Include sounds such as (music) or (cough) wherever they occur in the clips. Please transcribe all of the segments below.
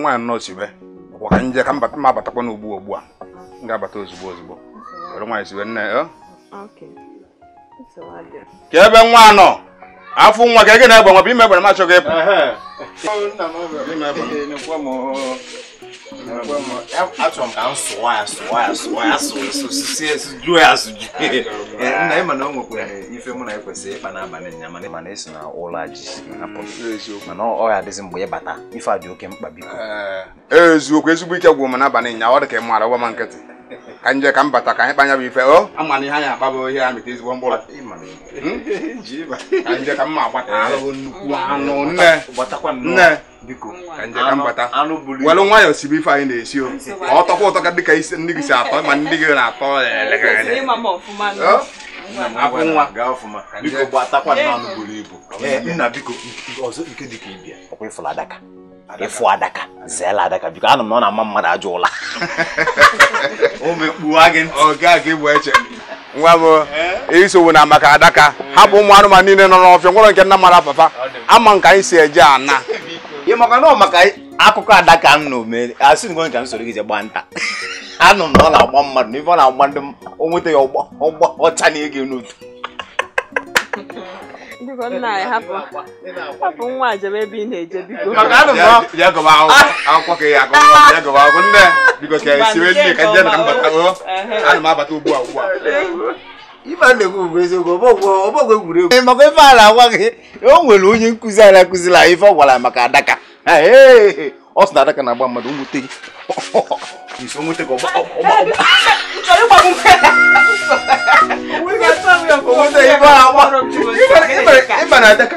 nwaanyị anọ sibe ọkwa ka nje ka m abatakwa n'ugbu ugbu a m ga-abata ozugbo ozugbo were nwaanyị sibe nne eh? ya ka ebe nwa nọ afọ nwa ka ị ga na-egbe nwa bụ ime egbere m achọghị ịpụ achọrọ ka ya ya ya ya ya nna na esi na ji ya adịzi ịbata eziokwu ezigbo ike gwụ m n'abalị nya ọ dị ka ị maara gwa nkịtị kanje ka m bata ka anyị kpanya bụ ife o ami na ihe anyị imani ihe ba kanje mkpụrụ ma bata ka mma agbata ahụhụ nnukwu anụ nne nne biko ka nje ka m bata walo nwa yo sibi fa na-esi o to ko to ka dịka isi ndị gị si atọ ma mo gị na-atọ abụ nwa gaa ọfụma biko gbatakwa nna anụ buru ibu na biko nke dịka ibia ọkwa ịfụla daka ịfụ adaka zeela adaka biko anụ m ọ na-ama mmadụ ajọ ụla (laughs) nwa m isowo na maka adaka hapụ ụmụ anụmanụ niile nọ n'ọfịa nwere nke nna mara papa ama nka anyị si eje ana ị maka na maka akụkọ adaka m na asị ngo nka m soro gị je gbaa nta (laughs) anụ m na ọ na-agba mmadụ n'ife ọ na-agba ndị o nweta ya ọgba ọcha na ego n'otu biko nna anyị hapụ nwa a ị na-eje biko maka ife a agwa gị o nwere onye nkụzi anyị akụziri anyị ife ọ gwara maka adaka ọ sị na adaka na-agba mmadụ nwute gị (laughs) ìsọ mú tẹkọ ọba ọba ọba. nítorí pa mú bẹ́ẹ̀. owó tẹ ìbára wọn ìbára ìbára dẹ́ka.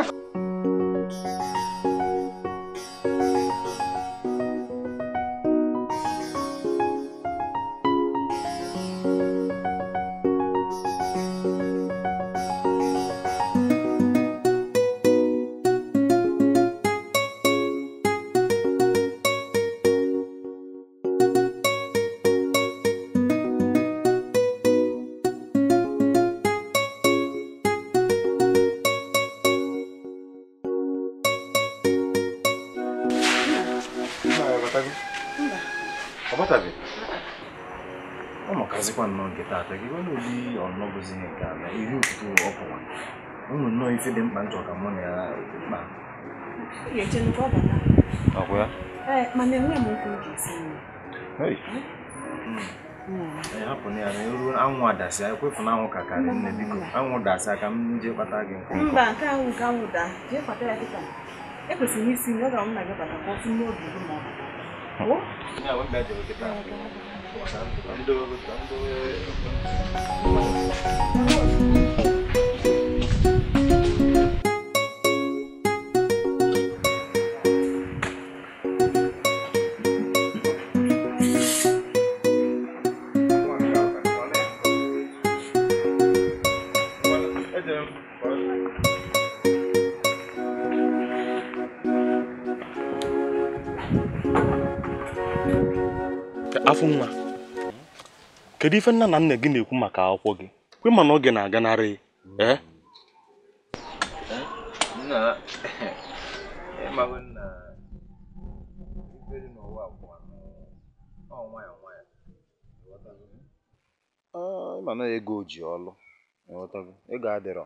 ọbatago ọ ụmụkazikwa nnọọ nke taata gị obi ụdị ọnọbụzi nke ala iri ụtụtụ ọpụwa ụmụ nnọọ ife dị mkpa njọ ka mụ na ya kpa ya na ya na anwụ adasị kpata gị nkwụ ya dịka ekwesịrị ọ ga-amụ na gị bata Oh? kedu ife nna na nna gị na-ekwu maka akwụkwọ gị kwe mana oge na-aganarị mm. ee eh? eh? eh, mana ah, ego ji ọlụ ego adịrọ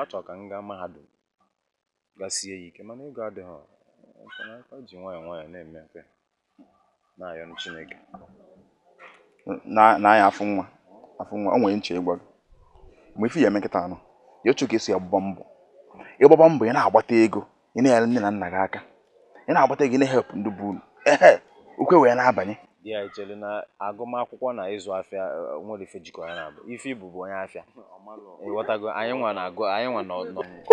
achọ ka m gaa mahadum gasie ya ike mana ego adịghị ji nwayọọ nwayọọ na-eme mfe na-ayọ Chineke na na anya afụ nwa afụ nwa o nwere nche ịgwa gị mgbe ife ya eme nkịta anọ ya otu ka esi agbaba mbọ ịgbaba mbọ ị na-agbata ego ị na-enyere nne na nna gị aka ị na-agbata ego ị na-ehep ndị bụ unu ehe ukwe wee na-abanye di a echere na agụmakwụkwọ na ịzụ afịa e, nwere ife jikọrọ ya na abụ ife ibu bụ onye afịa ịghọtago anyị nwa na-agụ anyị nwa nọ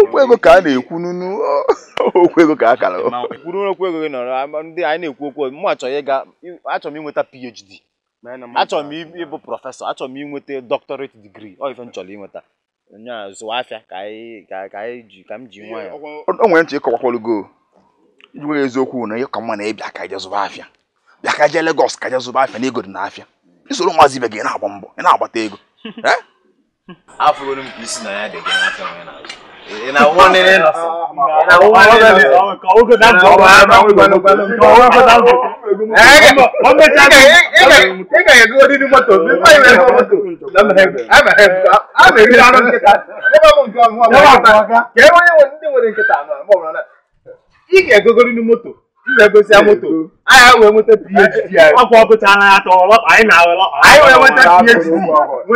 okwu ego ka a na-ekwu n'unu (laughs) okwu ego ka a kara kwuru okwu ego gị nọrọ ndị anyị na-ekwu okwu mụ achọghị ịga achọrọ m inweta PhD achọrọ m ịbụ prọfesọ achọrọ m ịnweta doctorate degree ọ ife m chọrọ inweta nya zụwa afịa ka anyị ji ka m ji nwa o nwere ntị ịkọwakwalụgo iji nwere eziokwu na ihe ka mma na ịbịa ka je zụba afịa bịa ka jee Lagos ka je zụba afịa na ego dị na afịa isoro nwazi ibe gị na-agba mbọ ị na-agbata ego (laughs) afụrụ m ka isi na ya dị gị n'afịa onye na-azụ na one in na one in ọkọ oge na jọ ọba ama ọgbẹni ọwọ ẹfọta ọgbẹ. ọmọ ẹja ni ẹ ga yẹ gbọdọ ní mọ́tò bí fún ìwé ẹsọ mọ́tò ama eri anọ nkịta ebe ọ bụ nke ọmụma bụ ọmụma ka e nwere ndị nwere nkịta anọ ma ọ bụrụ na ị ga-egogori n'imoto m na-egosi ya moto anyị wee nweta phd ọkwa ọpụtara ya anyị na-awere anyị wee nweta phd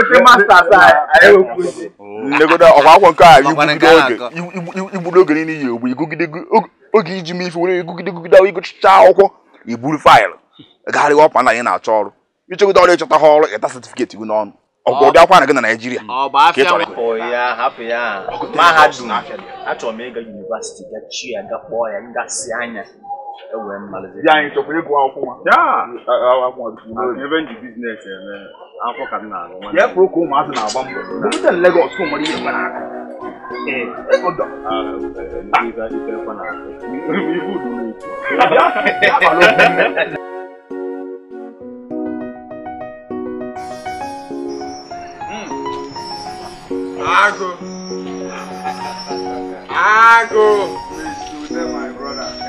nweta masters anyị nlegodo ọkwa akwụkwọ nke a igburu oge niile iyi ogbe igugide oge iji mee ife were igugide gugide ịgụchicha akwụkwọ iburu faịlụ gagharịwa ọkwa na anyị na-achọ ọrụ ịchọgide ọrụ ịchọta ha ọrụ ịta setifiketi gị n'ọnụ ọgwụ ụdị akwara gị na Naịjirịa ka mahadum achọrọ m ịga gachi ya gakpọ ya anya ɛwɔ ɛmu malize. yà àyìn tọkùnrin kò àwọn fún wa. yàà àwọn fún wa bí fún wa. revenge business ẹ mẹ an fọ kàdé nà àwọn. yẹ kúrò kó màá sìn àwọn bọ. mo bí tẹ̀lé Lagos fún mọ́lẹ́ yẹn fana. ẹ ẹ kò dọ̀. ah ibi ibi ẹ fana. ibu dùn mí. yàrá ló fún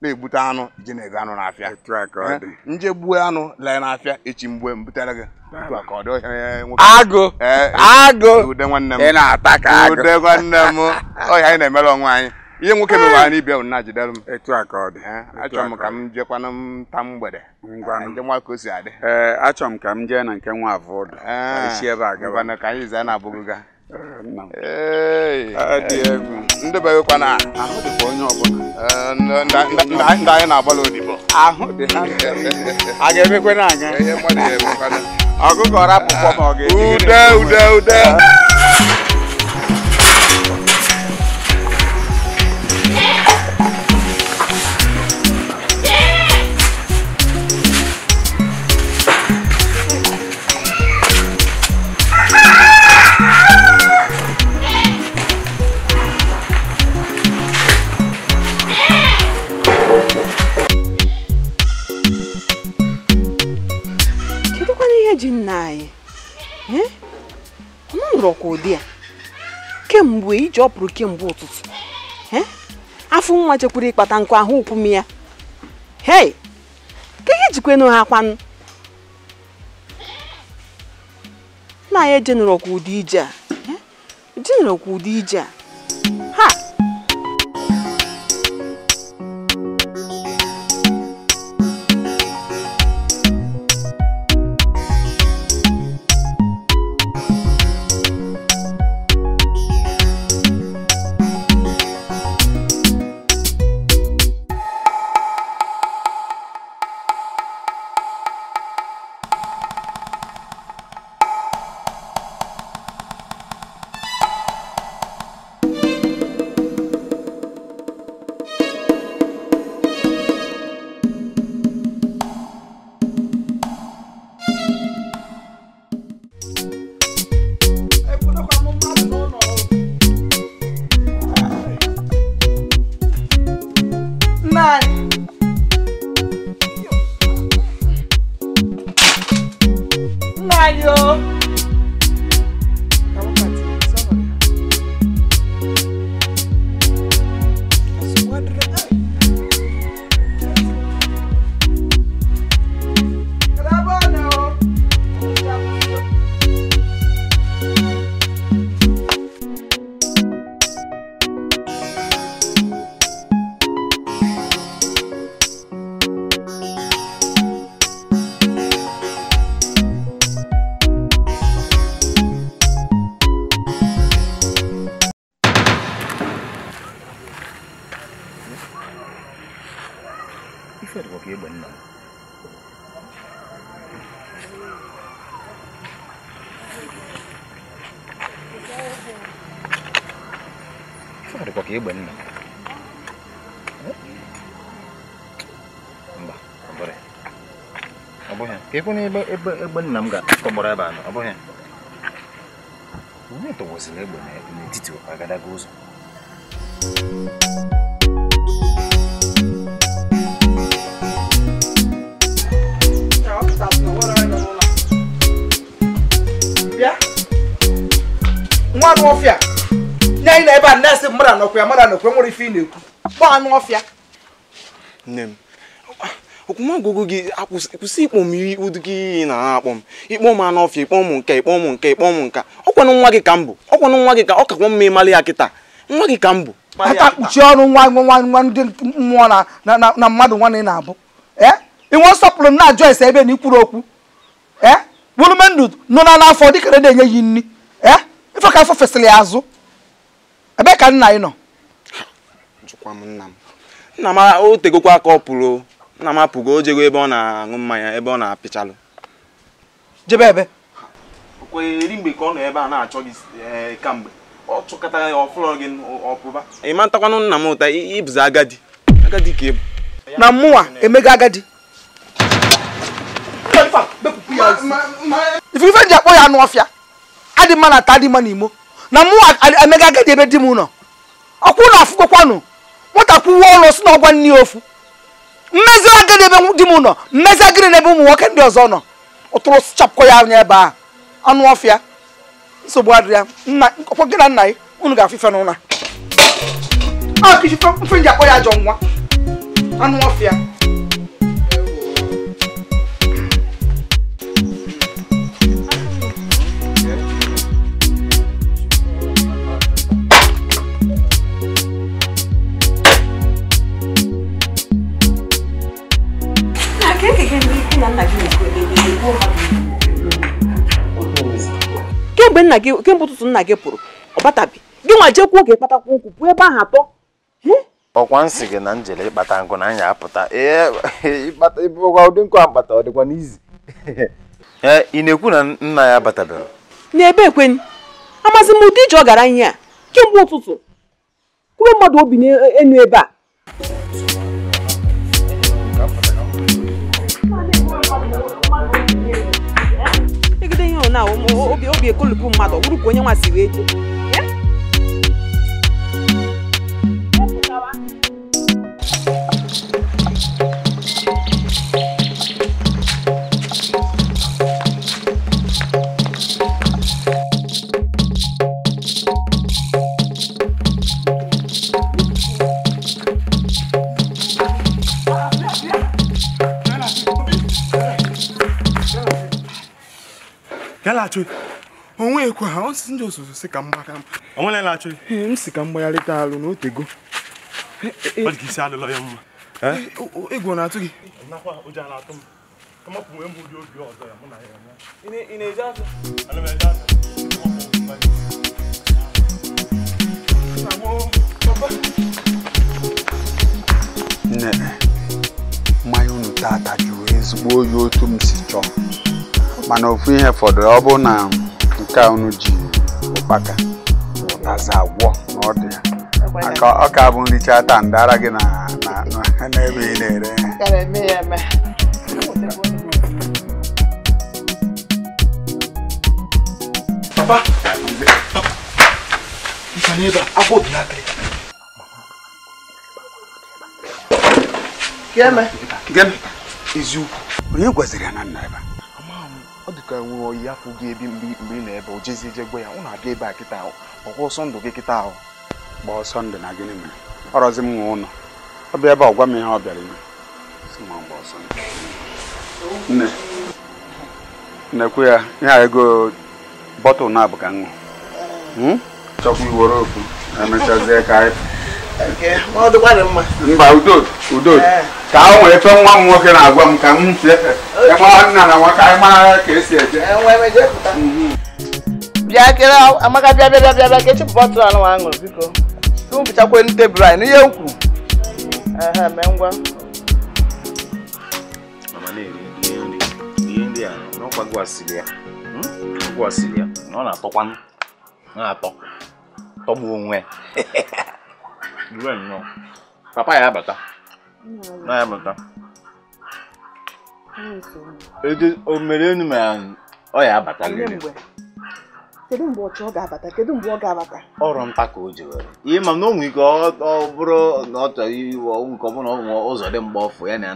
na-egbute anụ ji na anụ n'afịa eh? nje gbuo anụ lee n'afịa echi mgbe m butere gị agụ eh, agụ na agụ nwanne m ọhịa (laughs) anyị na-emere onwe anyị ihe nwoke bụ na jidere m etu a ka eh, achọrọ m ka m jekwana m mgbede ka achọrọ m ka m na nke nwa ka anyị zaa na-abụghị Ah, ndị ahụ ọbụla eh, ndị anyị na agbalị odibo ahụ dị a ga-emekwe na aga ma ọ ga-eji ude ude nna anyị m nụrụ ọkwa ụdị ya kemgbe iji ọpụrụ kemgbe ụtụtụ afọ nwa chekwara ịkpata nkụ ahụ ụkwụm ya hei ka ihe jikwenu ha kwanụ nna anyị ejenụrụ ọkwa ụdị ije a ejenụrụ ọkwa ụdị ije a bụ na ebe ebe egbe nna m ga-akọgbara ebe anọ ọ bụghị onye tọwazila egbe n'etiti agadaga ụzọ nwa anụ ọfịa nye anyị na ebe a na-esi mmadụ anọkwa ya mmadụ anọkwa nwere ife ị na-ekwu gba anụ ọfịa nne m okwumọgụgụ gị kwụsị ikpọ m ụdị gị iyi na-akpọ m ikpọ m anụ ọfịa ikpọ m nke ikpọ m nke ikpọ m nka ọkwanụ nwa gị ka m bụ ọkwanụ nwa gị ka ọ kakwa mma ịmalị ya kịta nwa gị ka m bụ aka kpuchie ọrụ nwa nwa nwa ndị mmụọ na mmadụ nwanne na-abụ eh? inwe nsọpụrụ na ajụ ese ebe na ikwuru okwu bụrụmendụ eh? nọ na n'afọ dịkara na-enye yi nri eh? ife ka afọ fesịrị ya azụ ebee ka nna ị nọ nna m o kwa aka ọ pụrụ nna m apụgo o jego ebe ọ na-aṅụ mmanya ebe ọ na-apịchalụ jebe ebe eri mgbe ka ọ ebe a na-achọ gị eh, kamgbe ọ chụkọtara ya ọfụlọ gị ọpụba ị matakwanụ nna m ụta ịbụzi agadi agadi ka ịbụ na mmụwa emego agadi ji akpọ ya anụ ọfịa adị na ata adị mma na agadi ebe di m nọ ọkwụ na afụgokwanụ nwata kwuwe ọnụ si na ọgwa nne ofu mmezi agịrị ebe di m nọ mmezi agịrị n'ebe ụmụ nwoke ndị ọzọ nọ ụtụrụ chapụkọ ya anya ebe a anụ ọfịa nsogbu adịrị nna ọkpọ gị na nna ya unu ga-afụ ife n'ụra a ah, kichi mfe nji akpọ ya ajọ nwa anụ ọfịa kemgbe nna gị kemgbe ụtụtụ nna gị pụrụ ọ batabi gị nwa jekwuo oge kpatakwa nkwụ pụọ ebe ahụ atọ ọkwa nsị gị na njele ịkpata nkụ na anyị apụta ụdị nkụ akpata ọ dịkwa n'izi ị na-ekwu na nna ya batabere n'ebe ekweni amazi m ụdị ije ọ gara ihe a kemgbe ụtụtụ kwube mmadụ obi n'enu ebe a na obi ekolupu mmadụ ọ bụrụ ka onye nwa si wee ya laghachi onwekwa ha ọsịsị ndị ososo si ka m si ka mgbagharịta alụ na otego e, e. ọ dị isi alụlọ ya mma egwu na-atụ gị ị nne mmanya unu tata jụrụ ezigbo oyi otu m si chọọ mana ofu ihe fọdụ ọ bụ na nke a unu ji ụkpaka aza agwọ na ọ ọka ọ ka bụ nricha taa ndara gị n'ebe ị na-ere Papa, Gịnị? Eziokwu. Onye gwaziri ya na nna ka nwere oyi afụ gị ebi mgbe ị na-ebe o jezi je gwa ya ụ na-abịa ebe a kịta ahụ ọkwa ọsọ ndụ gị kịta ahụ gbaa ọsọ ndụ na gịnị mere ọrọzi m nwe ụlọ ọ bịa ebe a gwa m ihe ọ bịara ime nne nnekwu ya ihe ego bọtụl na-abụ ka m ṅụ hmm? chọkwa iwere okwu emechazie ka anyị mba udo udo ka o nwere nwa m nwoke na-agwa m ka m nna na nwa ka anyị mara ka esi eje mhm. bịa kere amaka bịa bịa bịa bịa ka echi anụ aṅụrụ biko ka m bụchakwa n'ihe m kwuru hmm? onwe (laughs) Due nnọọ. Papa ya abata. Na ya abata. o mere enu ma ọ ya abata gịnị? Kedu mgbe ọ ga Kedu mgbe ọ ga-abata? Ọrụ nta ka o ji were. Ihe ma na ike ọ bụrụ na ọ chọrọ iwe ọnwụ nke ọ ọ ụzọ dị mgbe ọfụ ya na ya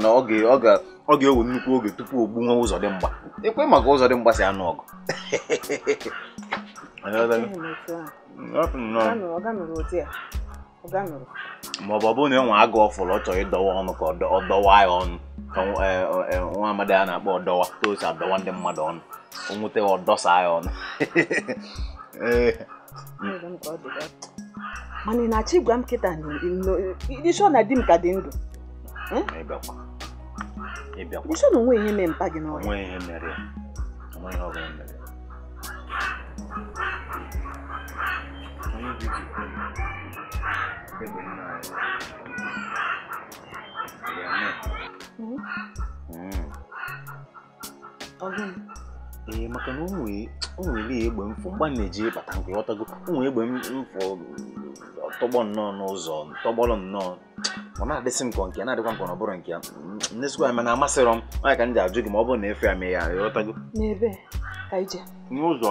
na ga-ewe nnukwu oge tupu o nwa ụzọ dị mgba. Ekwe maka ụzọ dị mgba si anụ ọgụ. (laughs) ma ọ ọ bụrụ na enwe agụ ọfụrụ ọ chọrọ ịdọwa ọnụ ka ọ dọwa ya ọnụ ka e, e, nwa amadi a na-akpọ ọdọwa ka ndị mmadụ ọnụ o nweta ọ ya ọnụ (laughs) e. mana ị na-achọ m na di m ka dị ndụ hm? ihe mee mpa Only ee maka na o nwere egbe ọ mgba na-eji nke ghọtago o egbe mfọ tọgbọ nnọọ n'ụzọ tọgbọrọ nnọọ ọ na-adịsị m ka nke na-adịkwa nke ọ bụrụ nke ya ndezikwa ya mana amasịrọ m nwaanyị ka m ajụ gị ma ọ bụrụ na efe ya mee ya ịghọtago n'ụzọ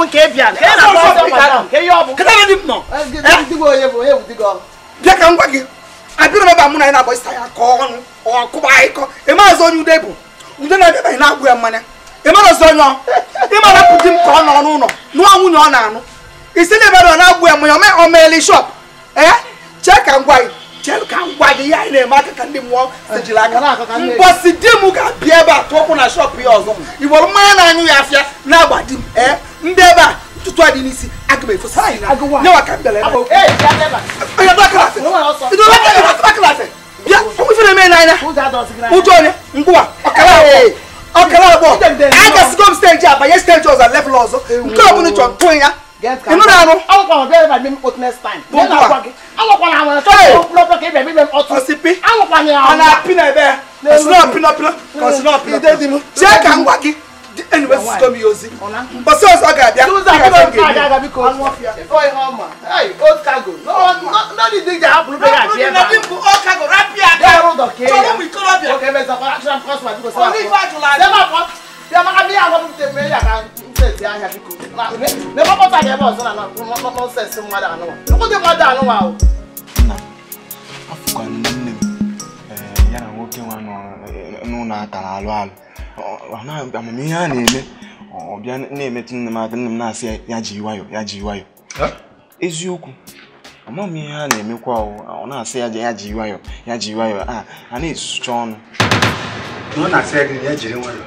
bụ nke bịa bịa ka m gwa gị abịrị na anyị na-agba ịsa ya ka ọnụ ọkụba ịkọ ịmaazị onye ude bụ ude na-abịabeghị na-agwụ ya mmanya ịmarazi onye ịmara pụdi m ka ọ nọ n'ụlọ nụọ nwunye ọ na-anụ isi na na-agwụ ya mmanya ọ shop ee chee ka m gwa gị ka m eme aka ka ndị di m ga-abịa ebe a tụọkwụ na shop ya ọzọ mmanya na-anyụ ya afịa na-agba ndeba tutu adi nisi agbe ifo sisi na ne wa ka mbele na. ee ya ndeba. ee dɔ kala se. idu dɔ kala se dɔ kala se. bia ɔmu fi ne mɛ n'an na. mu jɔ ne nkuwa ɔkala wɔ ɔkala wɔ a ka sigom stage a ba ye stage ɔzɔ lɛfɛ lɔzɔ nkɔlɔ mu ni jɔn tɔn ya inú náà nù. awọn kan ọdẹ bẹẹ mi o tẹ stein. mo gbà awọn kan àwọn ẹ̀ṣọ́ lọ́pọ̀ kí bẹẹ mi bẹ ọtún. ọsipi awọn kan ni àwọn. ọ̀nà pinna ẹ bẹ́ẹ̀ kọ̀sínà pinna pinna kọ̀sínà pinna pinna. ṣé kà ń wá kí anyway sis come use it but so so ga bia so so ga bia ga ga because one fear for him ma hey old cargo no no no the thing that happen be that here na people old cargo rapia ga road okay so we call up okay me za for action cross my because only for july dem ma dem ma bi awon te me ya ga nse ahia biko na me ma pota ga e bo so na no no sense mwa da no wa ko de mwa da no wa o afukwa nne m eh ya na nwoke nwa no n'ụlọ aka na alụ alụ amamihe a na-eme ọ bịa na-emetụ nne m aka nne m na-asị ya ji nwayọ ya ji nwayọ eziokwu amaghị m ihe a na-emekwa ọ na-asị ya ya ji nwayọ ya ji nwayọ a a na-esucha ọnụ ọ na-asị ya gị ya jiri nwayọ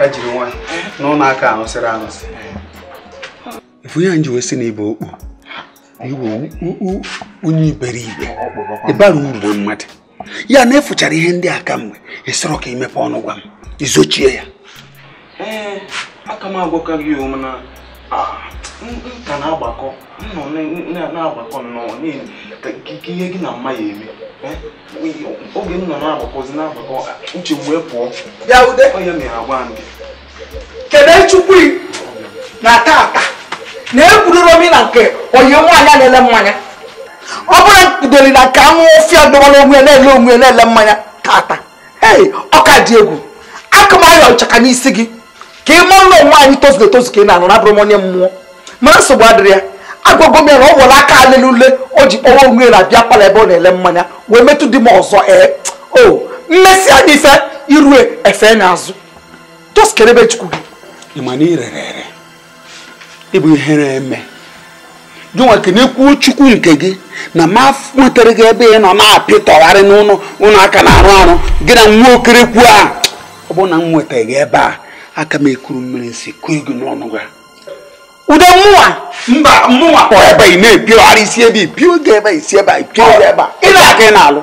ya jiri nwayọ n'ụlọ aka anụsịrị anụsị efu ya nji wee sị na ibe okpu iwe onye iberibe ịbara uru mmadụ ya na efuchara ihe ndị a kamgbe ịsọrọ ka imepe ọnụ gwa m izochie ya ee aka m agwakaghị mana nka na-agbakọ nnọ na-agbakọ nnọọ ihe gị na mma ya eme oge m nọ na-agbakọzi na-agbakọ uche wee pụọ ya ude onye mere agwa m kedu chukwu na taata, na egwuroro m na nke onye nwaanyị a na-ele mmanya ọ bụrụ bidoli na ka anwụ ofia ọdọgbara onwe na-ele onwe na-ele mmanya tata ee ọka dị egwu akụmaya ọchaka n'isi gị ka ị mụọ ụlọ onwe anyị tozu etozu ka ị na-anọ m onye mmụọ mana nsogbu adịrị ya agwagwo m ya na ọ aka alele ule o ji kpọwa onwe na bịa palọ ebe ọ na-ele mmanya wee metụ dị m ọzọ ee o mmesi ya ife irue efe na azụ toskere chukwu gị na ere ịbụ ihe na-eme jụnwa kenekwuo chukwu nke gị na ma nwetara gị ebe ị nọ na-apịtọgharị n'ụlọ ụlọ aka na-arụ arụ gị na nwa okerekwu a ọ bụ na m nwetaghị gị ebe a aka m ekuru mmiri si kụọ ego n'ọnụ gị ude mmụwa mba mmụwa kpọrọ ebe ị na-epigharị isi ebe ipi oge ebe isi ebe a ipio oge ebe a ịna aka ị na-alụ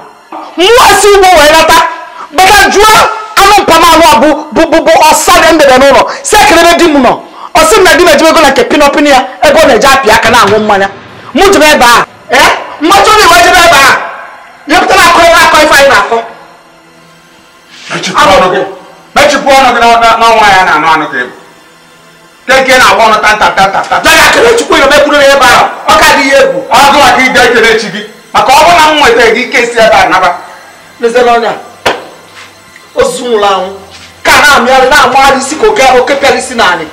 mmụọ si ugbo wee lata bata jụọ anụ mpamalụ a bụ bụ bụ ọsa dị ndebe n'ụlọ si ekelebe di m nọ ọ sị na di m ejibego na nke pinọpin ya ego na-eji api aka na-aṅụ mmanya mụ jebe ebe a mmacha onye wee jebe ebe a nyepụta na akọ akọ ife anyị na-akọ mechipụ ọnụ gị nwa ya na-anụ anụ ka ebu keke na-agba ọnụ tantatantata na ga akele chukwu ya mekwuru ebe a ọ ka adịghị egwu ọ gụwa ka ide ekele chi gị maka ọ bụrụ na m nweta gị ike si ebe a naba lezere ọnya ozu na ha amịarị na-amagharị isi ka oke oke pịara isi na anyị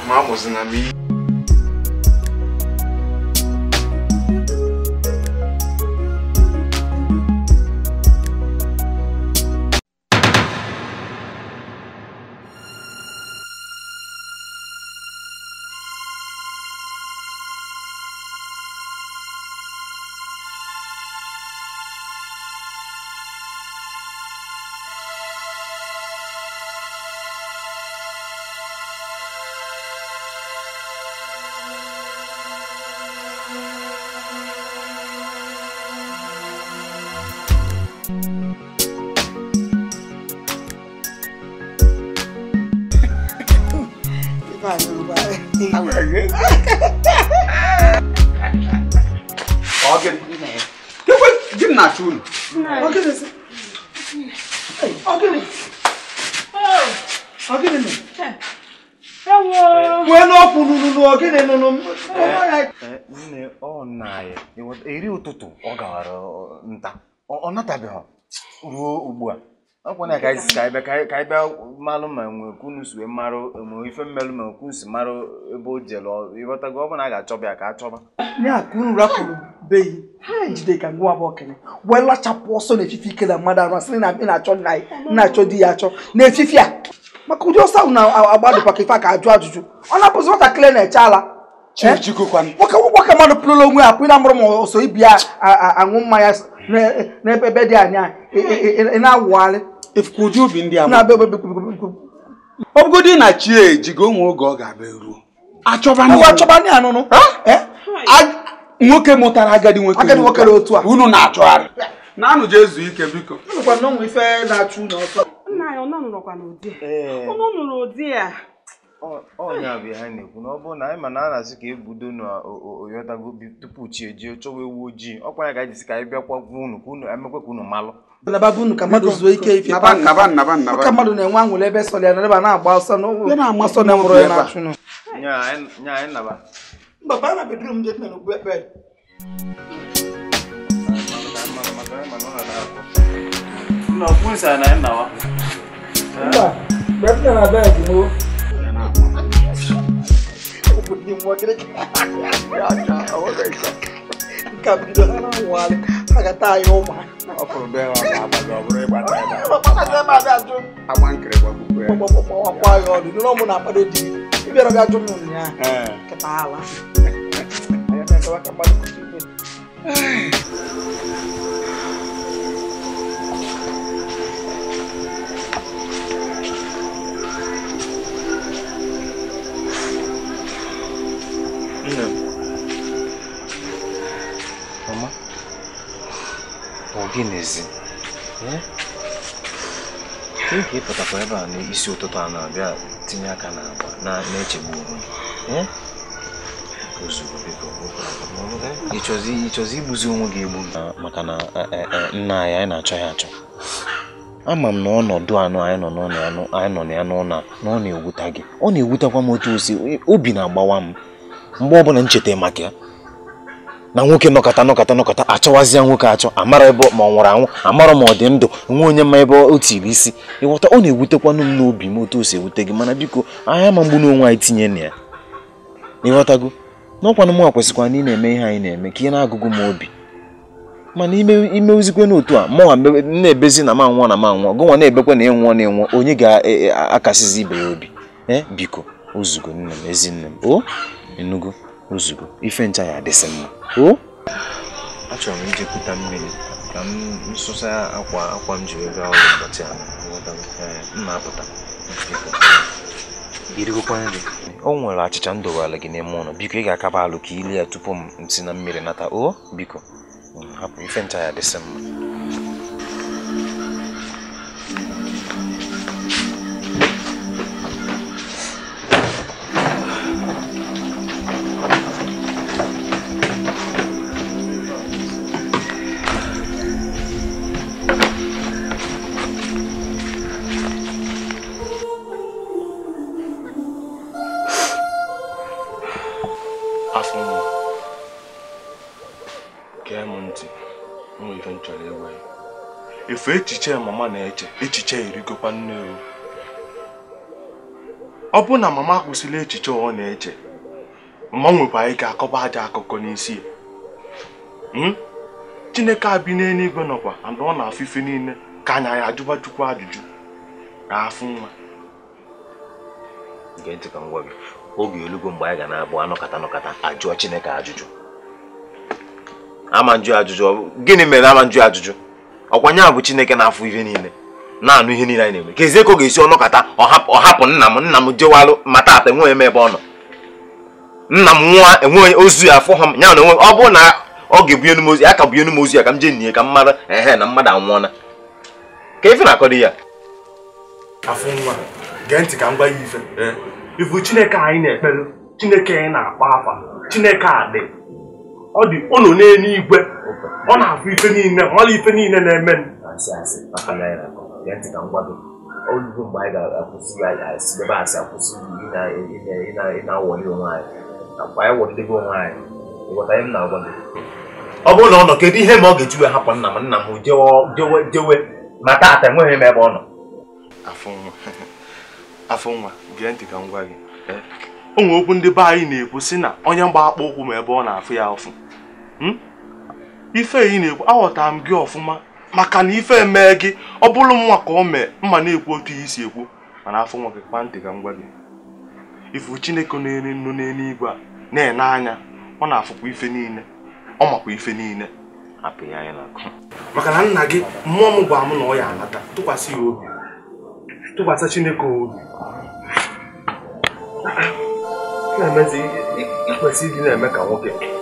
nna anyị eri ụtụtụ ọ gawara nta ọ natabeghị ruo ugbu a ọkwana ka anyị ka bịa malụ ma nwee kunu wee marụ ife mmelụ ma kunu marụ ebe o jere ịghọtago ọ a ga-achọba ya ka a chọba ka ajụjụ ọ na ala aka mmadụ pụrụla onwe ya pụrụ amụrụ ma ọsọ ibi ya aṅụ mmanya n'ebe dị anya e, e, e, na-awụgharị efukwuju ubi ndị a ọbụgodi na chi ejigo onwe oge ọ ga-abịa ruo achọba ndị anụnụ nwoke mụtara agadi nwoke otu a unu na-achọgharị na-anụ je ezu ike biko ife na-achụ unu ọsọ nna ya ọ nọrọkwa n'ụdị unu nụrụ ụdị a ọ bụ anyị na-ekwu na ọ bụrụ na anyị ma na a asị ka ebudo na oyotago tupu chi ejie chọwa ewu ojii ọkwa ya ga anyị ka anyị bịakwa gwa unu ka unu ka unu malụ unu ka mmadụ zuo ike ife ka mmadụ na-enwe anwụrụ ebe sọ na-agba ọsọ na-agba ọsọ na ya na ni mwagire kaka awaka isa kabida na wale akata ayoma ọfọlọbẹ wa ma abalẹ ọbụrụ ịgba taa ya ọkpọta sị ma abịa jụ agba di ịbịara bịa jụ m ụnyaahụ kịta ala ya na-ekewa ka mmadụ kwụsị ọ gịnịzi oge hm? ịpụtakwa ebe a n'isi ụtụtụ a na-abịa tinye aka n'agba na-echegbu onwe ịchọzi hm? igbuzi onwe gị egbu ah, maka na eh, eh, eh, nna anyị anyị na-achọ ya achọ ama m na ọnọdụ anụ anyị nọ anyị nọ na ya n'ụlọ a na ọ na-ewuta gị ọ na ewutekwa m otu osi obi na-agbawa m mgbe ọbụla m cheta maka ya na nwoke nọkọta nọkọta nọkọta achọwazịa nwoke achọ amara ebe ma ọ nwụrụ anwụ amara ma ọ dị ndụ nwe onye ma ebe o tiri isi ịghọta ọ na-ewutekwanụ m n'obi m otu o si ewute gị mana biko anya ma mgbu n'onwe anyị tinye na ya ịghọtago n'ọkwanụ mụ kwesịkwa na ị na-eme ihe anyị na-eme ka ị na-agụgụ m obi mana imewuzikwe n'otu a mụnwa na-ebezi na ma nwụọ na ma nwụọ gụnwa na-ebekwa na ịnwụọ na ịnwụọ onye ga-akasịzi e, e, ibe ya obi ee eh, biko ozugo nne m ezi m o nzukọ ife ncha ya adịsị mma achọrọ m ijekwuta mmiri ka m nsụsa akwa akwa m ji wee gaa ọrụ ụbọchị a mma apụta o nwere achịcha m ala gị n'ime ụlọ biko ị ga-akaba alụ ka ilie ya tupu m si na mmiri nata o biko mm, hapụ ife ncha ya adịsị mma echiche ya mama na-eche echiche erigokwa nne o ọ bụ na mama kwụsịla echiche ọ na-eche mama nwekwara ike akọba aja akụkọ n'isi hmm? chineke abi n'eluigwe nọkwa and ọ na-afụ ife niile ka anya ya ajụba chukwu ajụjụ afụ nwa oge elugo mgbe anyị ga na-abụ anọkata nọkata ajụọ chineke ajụjụ ama njụ ajụjụ gịnị mere ama njụ ajụjụ ọkwa a bụ chineke na-afụ ihe niile na-anụ ihe niile anyị na-eme kezie ka ọ ga-esi ọnọkọta ọhapụ nna m nna m jewalụ ma taata enweghị m ebe ọ nọ nna m nwa enweghị ozu ya afọ ha ya na ọ bụrụ na ọ ga-ebunye nu m ozu ya ka bunye nu m ozu ya ka m jee nne ka mmadụ ehe na mmadụ anwụọla ka ife na-akọdo ya afọ nwa gee ka m ya ife ifu chineke anyị na-ekpere chineke anyị na-akpa afa chineke a dị ọ dị ụnụ n'eluigwe ọ na-afụ ife niile mara ife niile na-eme olugo mgbe anyị ga-akwụsị ya asị akwụsị ịna-awọli onwe anyị nakwa anyị wọlidebe onwe anyị ịghọta m na-agwa gị ọ bụrụ na ọ nọ kedu ihe ma ọ ga-ejiwe hapụ nna m nna m jewe ma taata enweghị m ebe ọ nọ gee ntị ka ndị be anyị na-ekwu sị na onye mgba akpọ ụkwụ ma ebe ọ na-afụ ya ụfụ Hmm? ife ị na-ekwu aghọtara m gị ọfụma maka na ife mee gị ọ bụrụ nwa ka ọ mee mma na-ekwu otu ihe isi ekwu mana afọ nwa gị kpa ntị ka m gwa gị ifu chineke na-eri nnu n'eluigwe a na-ene anya ọ na-afụkwa ife niile ọ makwa ife niile hapụ ya anya n'akụ maka na nna gị mmụọ m gwara m na ọ ya anata tụkwasị ya obi tụkwasị chineke obi na-emezi ikwesị ịdị na-eme ka nwoke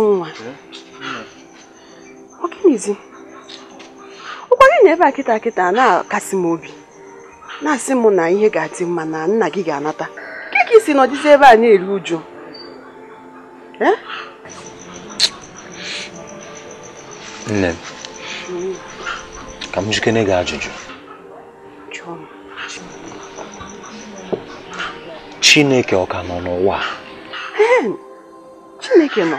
afụ nwa ọ ụkwa gị na ebe a kịta kịta na-akasi m obi na-asị m na ihe ga-adị mma na nna gị ga-anata nke ka isi nọdịzi ebe a na-eru uju nne m ka m jikere gị ajụjụ chineke ọ ka nọ n'ụwa chineke nọ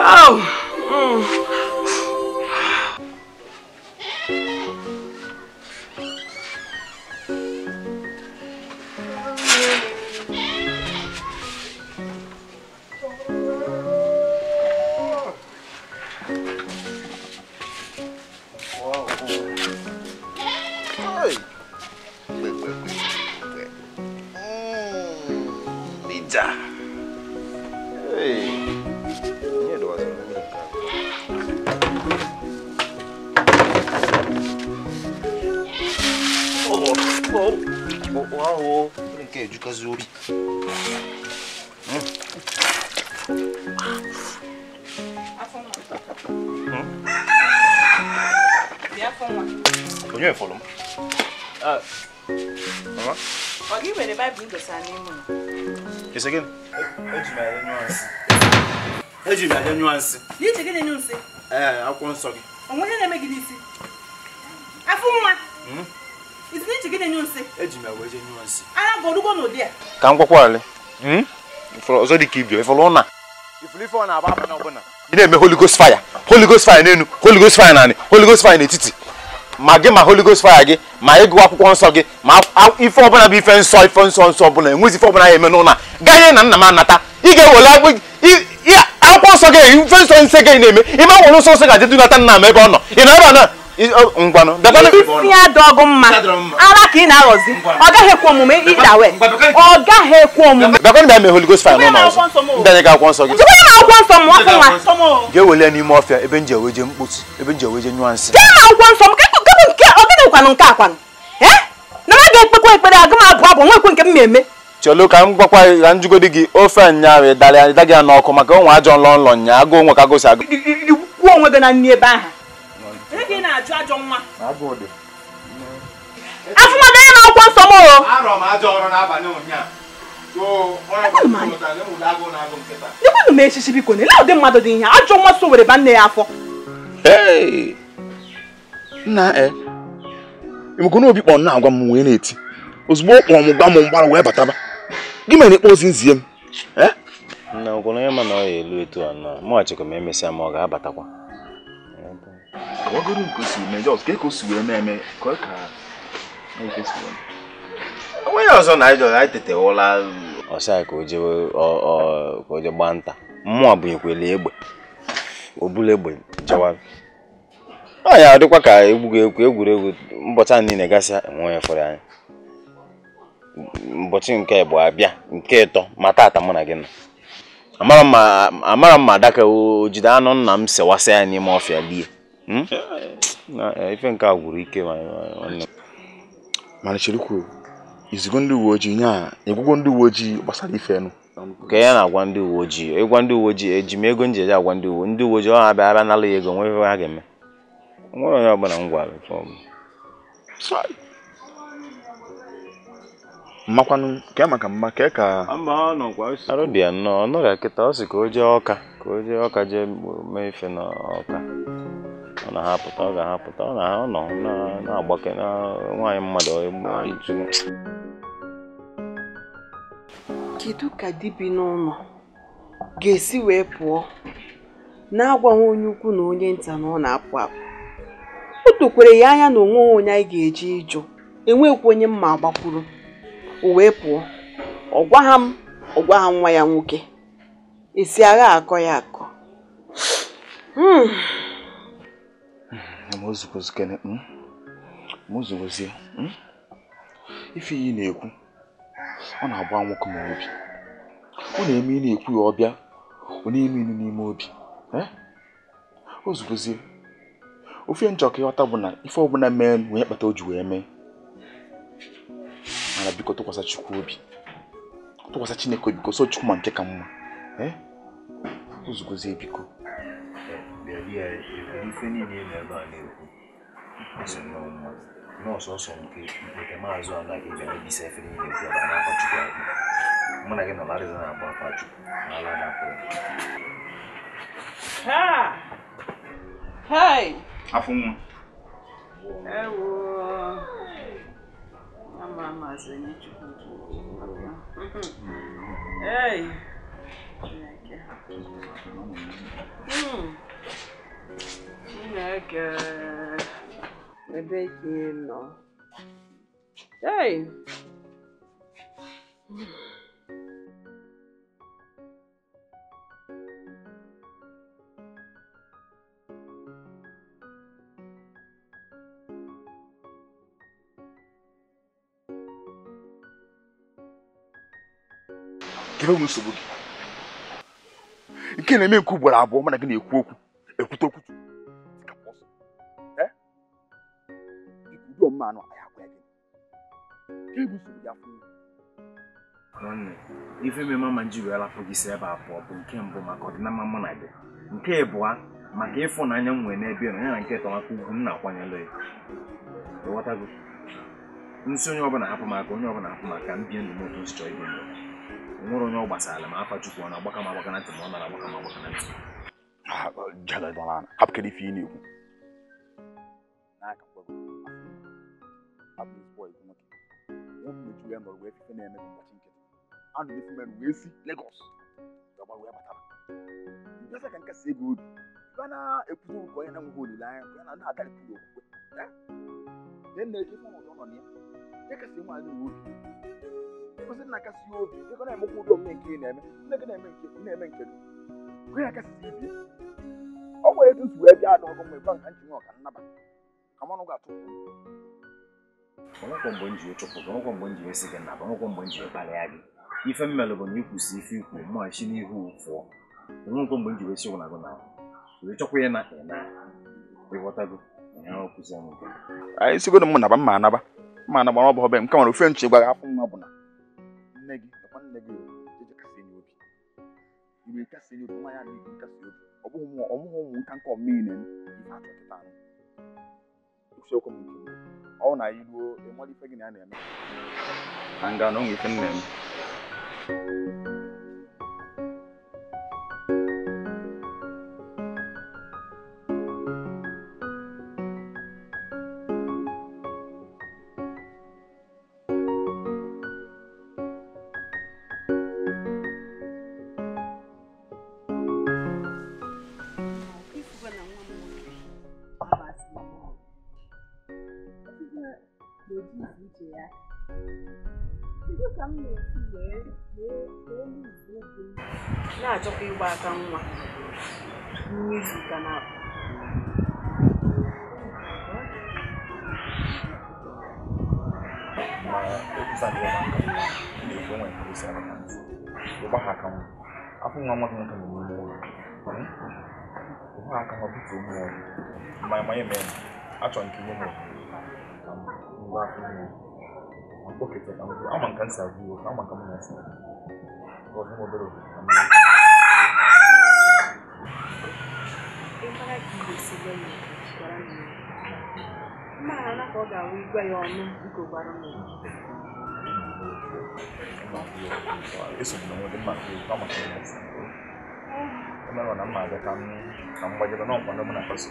Oh. Mm. Yes, again. Eji mi aja nuance. Ni eji gịnị nuance? Eh, I'm going to Onwe na eme gịnị isi? Afụ nwa. Mm. Izi ni eji gịnị nuance? Eji mi aja nuance. Ara go rugo no dia. Ka nkwakwa ale. Mm. you, if dị ka If ifolo na. Ifolo ifo na aba aba na ọbụna. Ị na-eme Holy Ghost fire. Holy Ghost fire n'enu, Holy Ghost fire n'ani, Holy Ghost fire n'etiti. ma gị ma holy ghost fire gị ma ị ịgụ akwụkwọ nsọ gị ma ife ọbụla bụ ife nsọ ife nsọ nsọ ọbụla enwezi ife ọbụla ya eme n'ụlọ a ganye na nna m anata ị ga-ewele akwụkwọ nsọ gị ife nsọ nsọ gị na-eme ime nwere nsọ nsọ ga-adị dunata nna m ebe ọ nọ ị na ebe a ngwanụ isi ya dị ọgụ mma ara ka ị na-aghọzi ọ gaghị ekwe omume ịda ọ gaghị ekwe omume bakwanụ bịa mee Holy Ghost akwụkwọ nsọ gị akwụkwọ nsọ m ọkụ nwa ga n'ime ọfịa ebe nji eweje ebe nji eweje nyụọ nsị nsọ m nke nke akwanụ na aga ekpekwa ekpere aga m abụ abụ nwekwe nke m na-eme chelu ka m gwakwa ya njugodi gị ofe nyaahụ ịdara n'ọkụ maka onwe ajọ nlọ nlọ nya agụ onwe ka agụ onwe gị na nri gị ka ị na-ajụ ajọ nwa afụmadụ onye na-akwọ nsọ m dịkwanụ m echichi biko na ele ụdị mmadụ dị ihe ajọ nwa so were ba nne ya afọ nna emekona eh, obi kpọ nna agwa m wee na-eti ozugbo ọ kpọrọ m gba m mgbara wee bataba gị mere ịkpọ ozi nzie m eh? nna onye ma na ọ ya elu etu a nọ mụghachikwa m emesịa ma ọ ga-abatakwa kagoro nke o si eme jos ka o si wee eme ka ọ ka onweghị ọzọ na anyị anyị tetewụla ọsịa ka o je gbaa nta mmụọ bụ ekwele egbe obula egbe jawara anyị adịkwa ka egbughị egwuregwu mbọcha niile gasịa enwe onye fọrọ anyị mbọchị nke bụ abịa nke ịtọ ma tata mụ na gị nọ amara m ma adaka o jide anụ nna m sewasị ya n'ime ọfịa lie Hmm? Eh, eh, ife nke a gwụrụ ike mana cherukwu izigo ndị uwe ojii nya egwugo ndị uwe ojii gbasara ife nụ ka ya na-agwa ndị uwe ojii ịgwa ndị uwe ojii eji m ego njeje agwa ndị uwe ndị uwe ojii ọ abịa abịa nala ya ego nwee ife ha ga-eme nwere onye ọbụla m gwara mmakwanụ ka ya e maka mma ka e ka arụ dị nnọọ ọ nọrịa kịta ọ sị ka o jee ọka ka o jee ọka jee mee ife n'ọka na ha apụta ọ ga-ahapụta ọ na ha nọ na-agbake na nwaanyị mmadụ kedu ka bi n'ụlọ ga-esi wee pụọ na-agwaghị onye ukwu na onye nta na ọ na-apụ apụ o dokwere ya anya na onweghị onye anyị ga-eji ịjụ enwekwa onye mma agbakwuru o wee pụọ ọ gwaha m ọ gwaha nwa ya nwoke esi agha akọ ya akọ hmm. mụzụgozie hmm? hmm? ife iyi na-ekwu ọ na-agba nwoke m obi ọ na-eme ị na-ekwu ya ọbịa ọ na-eme ilu n'ime obi e? o zugozie ofe nchọ ka ịghọta bụ na ife ọbụla mee onye kpata o ji wee mee mana biko tụkwasa chukwu obi tụkwasa chineke obi ka o so chukwu ma nke ka mma e? o zugozie biko ya ife niile ị na-ebe a na-ekwu ọsọ nnọọ mma na nke nke maazị anaghị ebe mebisa ife niile ekwu ebe a na-akpa akpụ mụ na gị nọ larịza na-agba akpa na ala na-akpọ afọ nwa Ei! Chineke ebe ka ị nọ ei nsogbu gị nke na-eme nke ugboro abụọ mana gị na-ekwu okwu ekwute okwutu anụ nwanne ife mmemme ma njiri alapụ gị si ebe abụọ bụ nke mbụ maka ọdịnama mụ na gị nke ịbụa maka ịfụnanya m nwere n'ebe na ya na nke tọmaka ugwu m na-akwanyere ya gị nsị onye ọbụla hapụ maka onye ọbụla hapụ maka m bie ndụ m otu m chọọ ibi ndụ nwere onye ọ gbasara m afa chukwu ọ na-agbaka m agbaka na ntị ma ọ nara agbaka m agbaka na ntị joga eles vão lá, rápido que ele Lagos nke na nke eme nke ọ nwere etu si wee bịa ada ọgụ mgbe gwa nka nwe ọka nnaba ka ga-atụ ọnụkwọ mgbe m ji chụpụ gị ọnụkwọ mgbe m ji esi gị nnaba ọnụkwọ mgbe m ji kparịa gị ife mmelụ bụ na ikwusi ife ikwu mma n'ihu fụọ ọnụkwọ mgbe m ji wesi na wee chọkwa ya na ịna ịghọtago anyị m naba mma anaba bụ m nwere ofe nche gwa gị afọ nwa bụ na nne gị imirika sɛ ni oduma yɛ adi imirika sɛ obi ɔmo hɔn mu ɔmo hɔn mu nkankan ɔmii nɛm ifa atɔ teta no ekusi ɔkɔ mu nti ɔwɔ na ayi duo emu adi fɛ gini anɛm. anga na ɔmo ife nnɛm. manye mene achọ nke mụmụ mgbe afọ ime mkpọkịta ka mbụ ama nka nsị agwụ iwe ama nka m na-asa ọzọ m obere obodo na mmiri mmaghara ka ọ ga-awụ igwe ya ọnụ nke gbara mmiri esogbuna nwere mma nke ụkwa maka ya na mma abịa ka m gbajebe n'ọkwa ndị mụ na-akpaso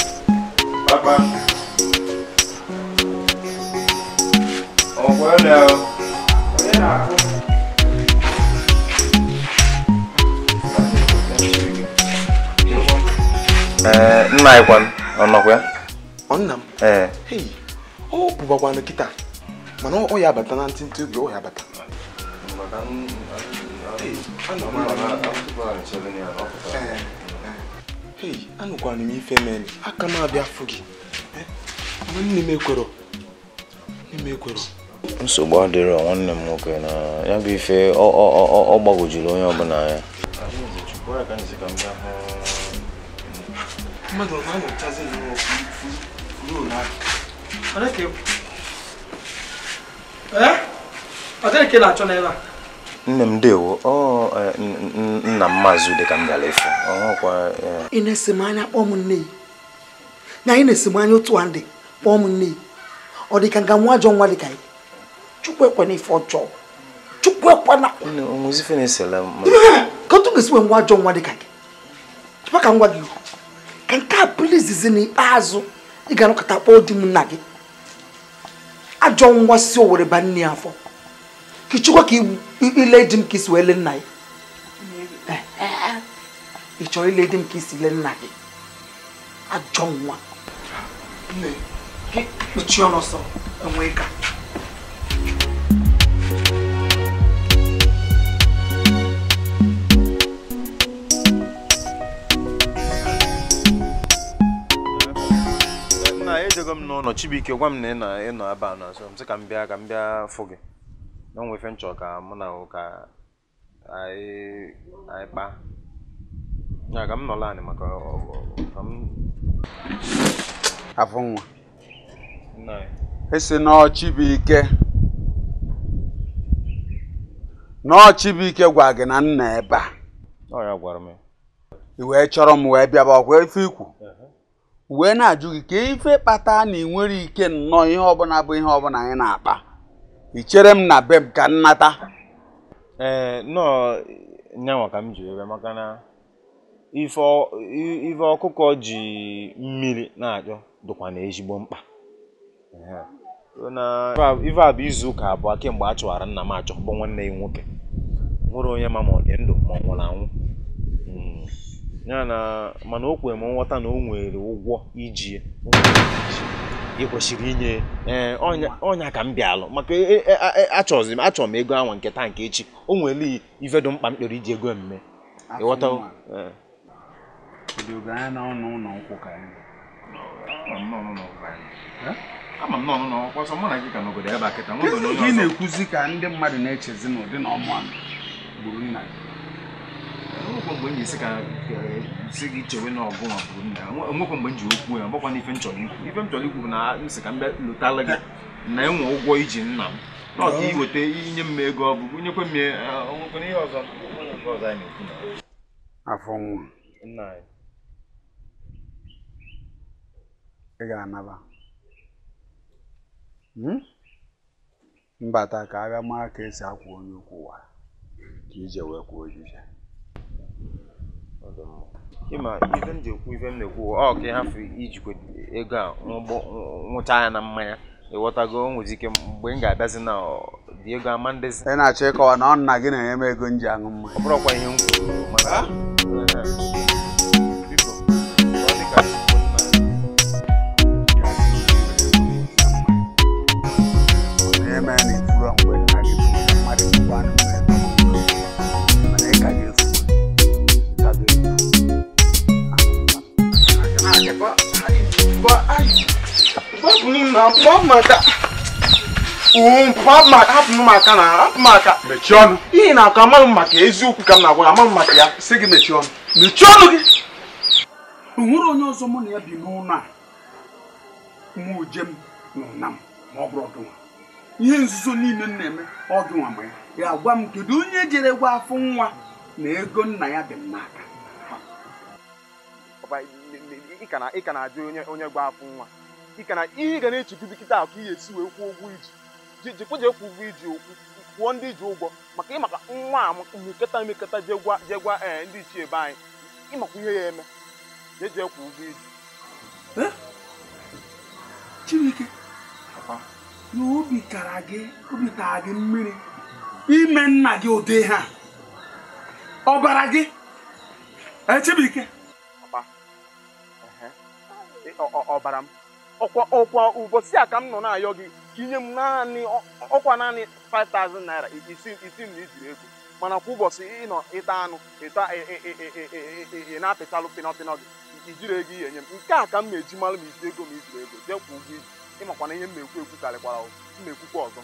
Eh, nna anyị kwanụ ọ nọkwa nna m eh. ọ bụbakwanụ kịta mana ọ ya abata na ntịntị oge ọ ya abata eh, anụkwana m ife mere aka m abịa afụ gị nsogbu adịrọ nwanne m nwoke na ya bụ ife ọ gbagwojuru onye ọbụla ya mmadụ ọ na-enyochazi ezinụlọ na-achọ a nne m dewo e, nna m maazị m gara e. ị na-esi m anya kpọọ m nne na anyị na-esi m anya otu a ndị kpọọ m nne ọ dị ka nga nwa ajọ nwa ka ife ọjọọ chukwu ka ga-esi nwe nwa ajọ nwa gị ka m gị ka nke a bụrụ izizi n'ikpeazụ ị ga-anọkọta kpọọ di m nna gị ajọ nwa si o were nne afọ ka ka ile di m ka isi wee lee nna ya ị chọrọ ile di m ka isi le nna gị ajọ nwa kpuchie ọnụ ọsọ enwee ka m n'ụlọ gwa na ịnọ ka m bịa ka m bịa fụ gị na ka mụ na ụka, anyị anyị kpaa ya ka m nọla anị maka ka m afụ esi nọọ Chibuike gwa gị na nna ebe a ọ ya m wee chọrọ m wee bịaba ọkwa ife ikwu wee na-ajụ gị ka ife kpata na ị nwere ike nnọọ ihe ọbụla bụ ihe ọbụla anyị na-akpa ichere chere m na be m ka nnata ee eh, nnọọ nyanwa ka m ji ebe maka na ife ọkụkọ ji mmiri na-achọ dịkwa na ezigbo mkpa ife a bụ izu ụka abụọ kemgbe a chụwara nna m achọ bụ nwanne ya nwoke nwere onye ma ma ọ ndụ ma ọ nwụrụ anwụ ya na mana o kwere m nghọta na o nwere ụgwọ iji ị kwesịrị inye eh, ọnya ka m bịalụ maka e, e, e, achọzi m ego anwa nke taa nke echi o nwere ife dị mkpa m kpere iji ego mme ịghọta eh. eh? gị na ka ndị mmadụ na-echezi n'ụdị na ọmụ gburu nna nwekwa mgbe m ji esi ka si gị chewe na ọgụ nwa bụrụ nna ya nwekwa mgbe m ji okwu ya gbakwa n'ife m chọrọ ikwu ife m chọrọ ikwu bụ na m si ka m bịa lụtara gị na enwe ụgwọ iji nna m na ọka iweta inye m ego ọ bụ nyekwe m nwekwana ihe ọzọ afọ nwa ị ga-anaba hmm? mbata ka a bịa mara ka esi akwụ onye okwu ụwa ka ije wee kwuo ojije ịma ife m ji ekwu ife m na-ekwu ọ ka ịhafụ ijikwa ego a nwụcha ya na mmanya ịghọtago o ike mgbe m ga-abịazi na dị ego ama si. ị na-achọ ịkọwa na ọ nna gị na-enye m ego m ji aṅụ mma ọ bụrụkwa ihe m kwuru maka hapụ m na hapụ m mechie ọnụ ihe na akọ amaghị m maka eziokwu ka m na-agwa amaghị m maka ya si gị mechie ọnụ mechie ọnụ gị o nwere onye ọzọ mụ na ya bi n'ụlọ a mụ jem n'ụna m ma ọ bụrụ ọdụnwa ihe nzuzo niile m na-eme ọdụnwa mgbe ya gwa m kedu onye jere gwa afọ nwa na ego nna ya dị m n'aka ị ka na-ajụ onye gwa afọ nwa ka na ihe ị ga na-echegide kịta ahụ ka ị ga-esi wee kwụọ ụgwọ iji jikwa jee kwụ ụgwọ iji kwụọ ndị ji ụgwọ maka ịmaka nwa a mekọta emekọta jee gwa ee eh, ndị ichie ebe anyị ịmakwa ihe ya eme jee jee kwụ ụgwọ iji eh? Chibuike na obi kara gị obi tara gị mmiri ime nna gị ụdị ha ọbara gị eh, Chibuike ọbara m ọkwa ọkwa ụbọchị a ka m nọ na-ayọ gị ka inye m naanị ọkwa naanị 5000 naira isi na ijiri ego mana kwa ụbọchị ịnọ ịta anụ ịta ị na-apịtalụ pịnọpịnọ gị ijiri ego ihe nye m nke a ka m na-eji malụ ma iji ego ma ijiri ego jee kwa ụgwọ iji na ihe m na-ekwu ekwu karịkwara m na-ekwukwa ọzọ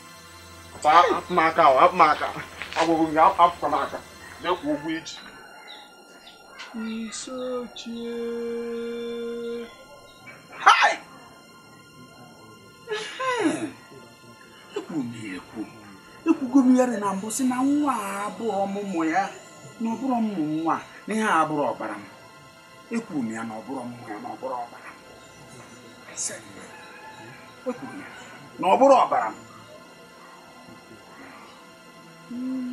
apụmaka apụmaka agwụgwụ gị apụkwa m aka jee kwa iji isochie hai ekwuru m ya ekwu ekwugo m na mbụ si na nwa a abụọ ọmụmụ ya na ọbụrụ ụmụ nwa na ihe abụrụ ọbara m ekwuru m ya na ọbụrụ ọmụmụ ya na ọbụrụ ọbara m ekwuru ya na ọbụrụ ọbara m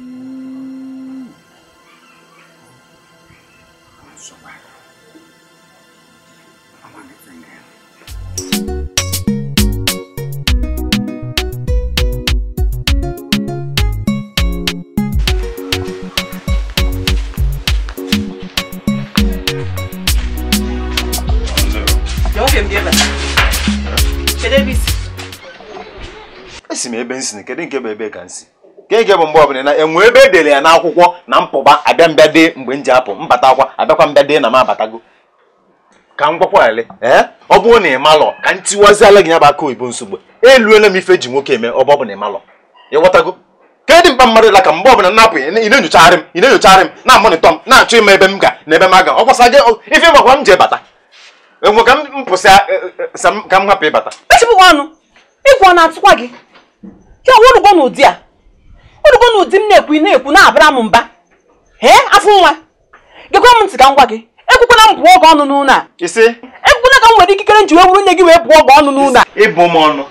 isi m ebe nsi kedu nke bụ ebe ka nsi nke nke bụ mgbe na enwe ebe edere ya n'akwụkwọ na mpụba abịa mbịa dị mgbe m ji apụ mbata akwa abịakwa mbịa dị na m abatago ka m gwakwa ele ee ọ bụrụ na ị ka m tiwaziala gị ya bụ aka oyibo nsogbu eluela m ife ji nwoke eme ọ bụ na ị malọ ịghọtago ka dị mkpa mmadụ ka mgbe ọbụla enyochagharị m na-enyochagharị m na-amonitọ m na-achọ ịma ebe m ga na ebe m aga ọ kwasa ife gbakwa ji bata ka m e, e, e, ka hapụ ịbata gị ya orugbo na ụdị a orugbo na ụdị m na-ekwu na-ekwu na-abara m mba ee afọ nwa gekwa m ntị ka m gwa gị ekwukwana m bụọ oge ọnụ n'ụlọ a ekwukwana ka m nwere ikikere nji wee wuru nne gị wee bụọ oge ọnụ n'ụlọ a ịbụ m ọnụ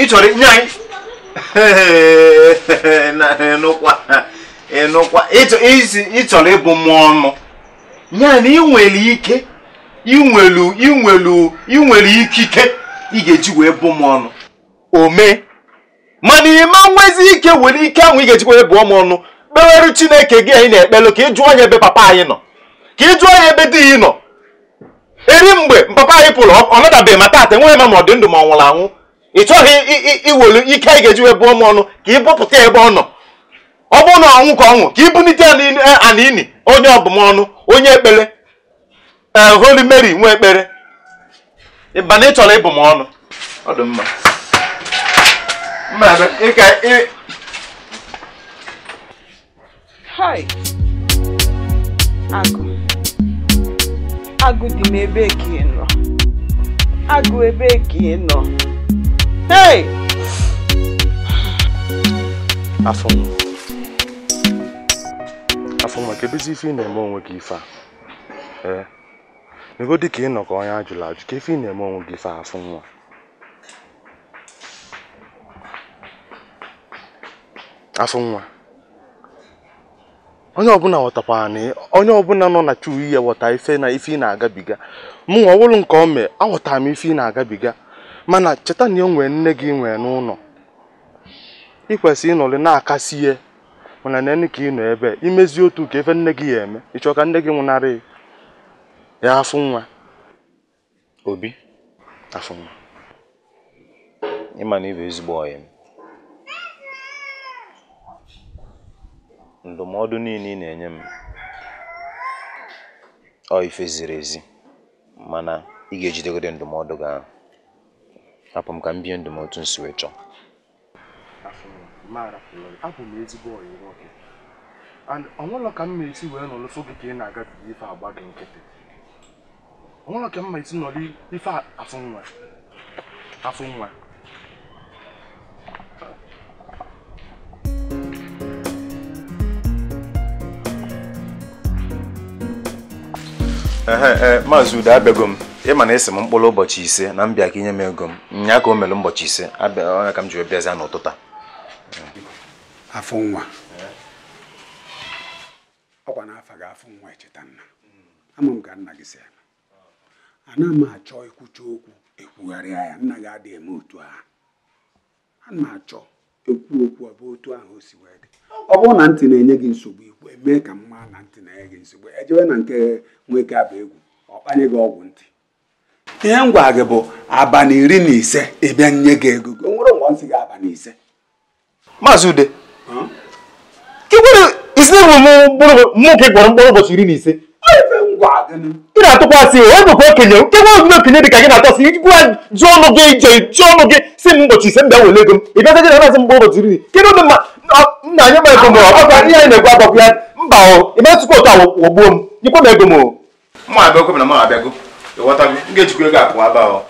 ị chọrọ inye anyị (laughs) ị chọrọ ịbụ m ọnụ ya na ị nwere ike inwelu inwelu inwere ikike ị ga-eji wee bụ m ọnụ omee. mana ime nwezi ike nwere ike ahụ ị ga-ejikwa ebe ọmụ ọnụ kpeweru chineke gị anyị na-ekpelu ka ị jụọ anya ebe papa anyị nọ ka ị jụọ anya ebe di ya nọ eri mgbe papa anyị pụrụ ọ nadabeghị ma taata enweghị ma ma ọ dị ndụ ma ọ nwụrụ anwụ ị chọghị iwelu ike anyị ga-eji wee bụọ m ọnụ ka ị bụpụta ebe ọ nọ ọ bụrụ na ọnwụ ka ọnwụ ka ị bunite ana ini eh, onye ọbụmọnụ onye ekpere ee eh, holy mary nwa ekpere ịba na ị chọrọ ịbụ m ọnụ ọ dị mma Mmadụ ịka ị. Hai! Agụ. Agụ dị m ebe ka ị nọ. Agụ ebe ka ị nọ. hey! Afọ m. Afọ m maka ebezi ife ị na-eme onwe gị ife Ee. Ego dị ka ị nọ ka ọnya ajụla ajụ ka ife ị na-eme onwe gị ife a afọ nwa. afụ nwa onye ọbụla ghọtakwara na onye ọbụla nọ na chuu ihe ghọta ife na ife ị na-agabiga mụnwa ọwụrụ nke ome aghọtara m ife ị na-agabiga mana cheta na e nne gị nwee n'ụlọ ị kwesịrị ịnọrị na-akasi ihe mana nene ka ị nọ ebe imezi otu ka efe nne gị ya eme ịchọ ka nne gị nwụnarị ya afụ nwa obi afụ nwa ịma na ịbụ ezigbo ọyị m ndụmọdụ niile ị na-enye m ọ ife ziri ezi mana ị ga-ejidegode ndụmọdụ gị ahụ hapụ m ka m bie ndụmọdụ m nsi wee chọọ ọnwụlọ ka esi wee gị ka ị na ife agba gị nkịtị ọnwụlọ ka esi ife E, maazị udo abịago m ma na esi m mkpụrụ ụbọchị ise na mbịa ka inye m ego m nya ka o mere ụbọchị ise abịa ka m jiri bịazie n'ụtụtụ a afọ nwa ọkwa n'afa gị afọ nwa echeta nna ama m ka nna gị si ala ana m achọ ịkwụcha okwu ekwugharịa ya nna gị adịghị eme otu ahụ ana m achọ ekwu okwu ọ otu ahụ o si wee ọ bụrụ na ntị na-enye gị nsogbu ikwu mee ka mma na ntị na-enye gị nsogbu ejewe na nke nwoke aba egwu ọ kpanye gị ọgwụ ntị ihe m gwara gị bụ abalị iri na ise ịbịa nye gị ego o nwere ụgwọ nsị gị abalị ise maazị ude isi mụ ka ị gwọrọ mkpụrụ ụbọchị iri na ise ị na-atụkwasị onye bụ okenye nke nwe okenye dị ka gị na-atọsị iji gwa jụọ ọnụ gị ije jụọ ọnụ gị si m ụbọchị ise m bịa wele ego m ị bịazaji na nazi mgbe ụbọchị iri kedụ dị mma nna anyị ma egomo ọkwa ihe anyị na-egwu agbakwu ya mba o ime tupu otu awụ ogbuo m ikwe m egomo mma abịago na mma abịago ịghọtago m ga-ejikwa ego akụ aba ọ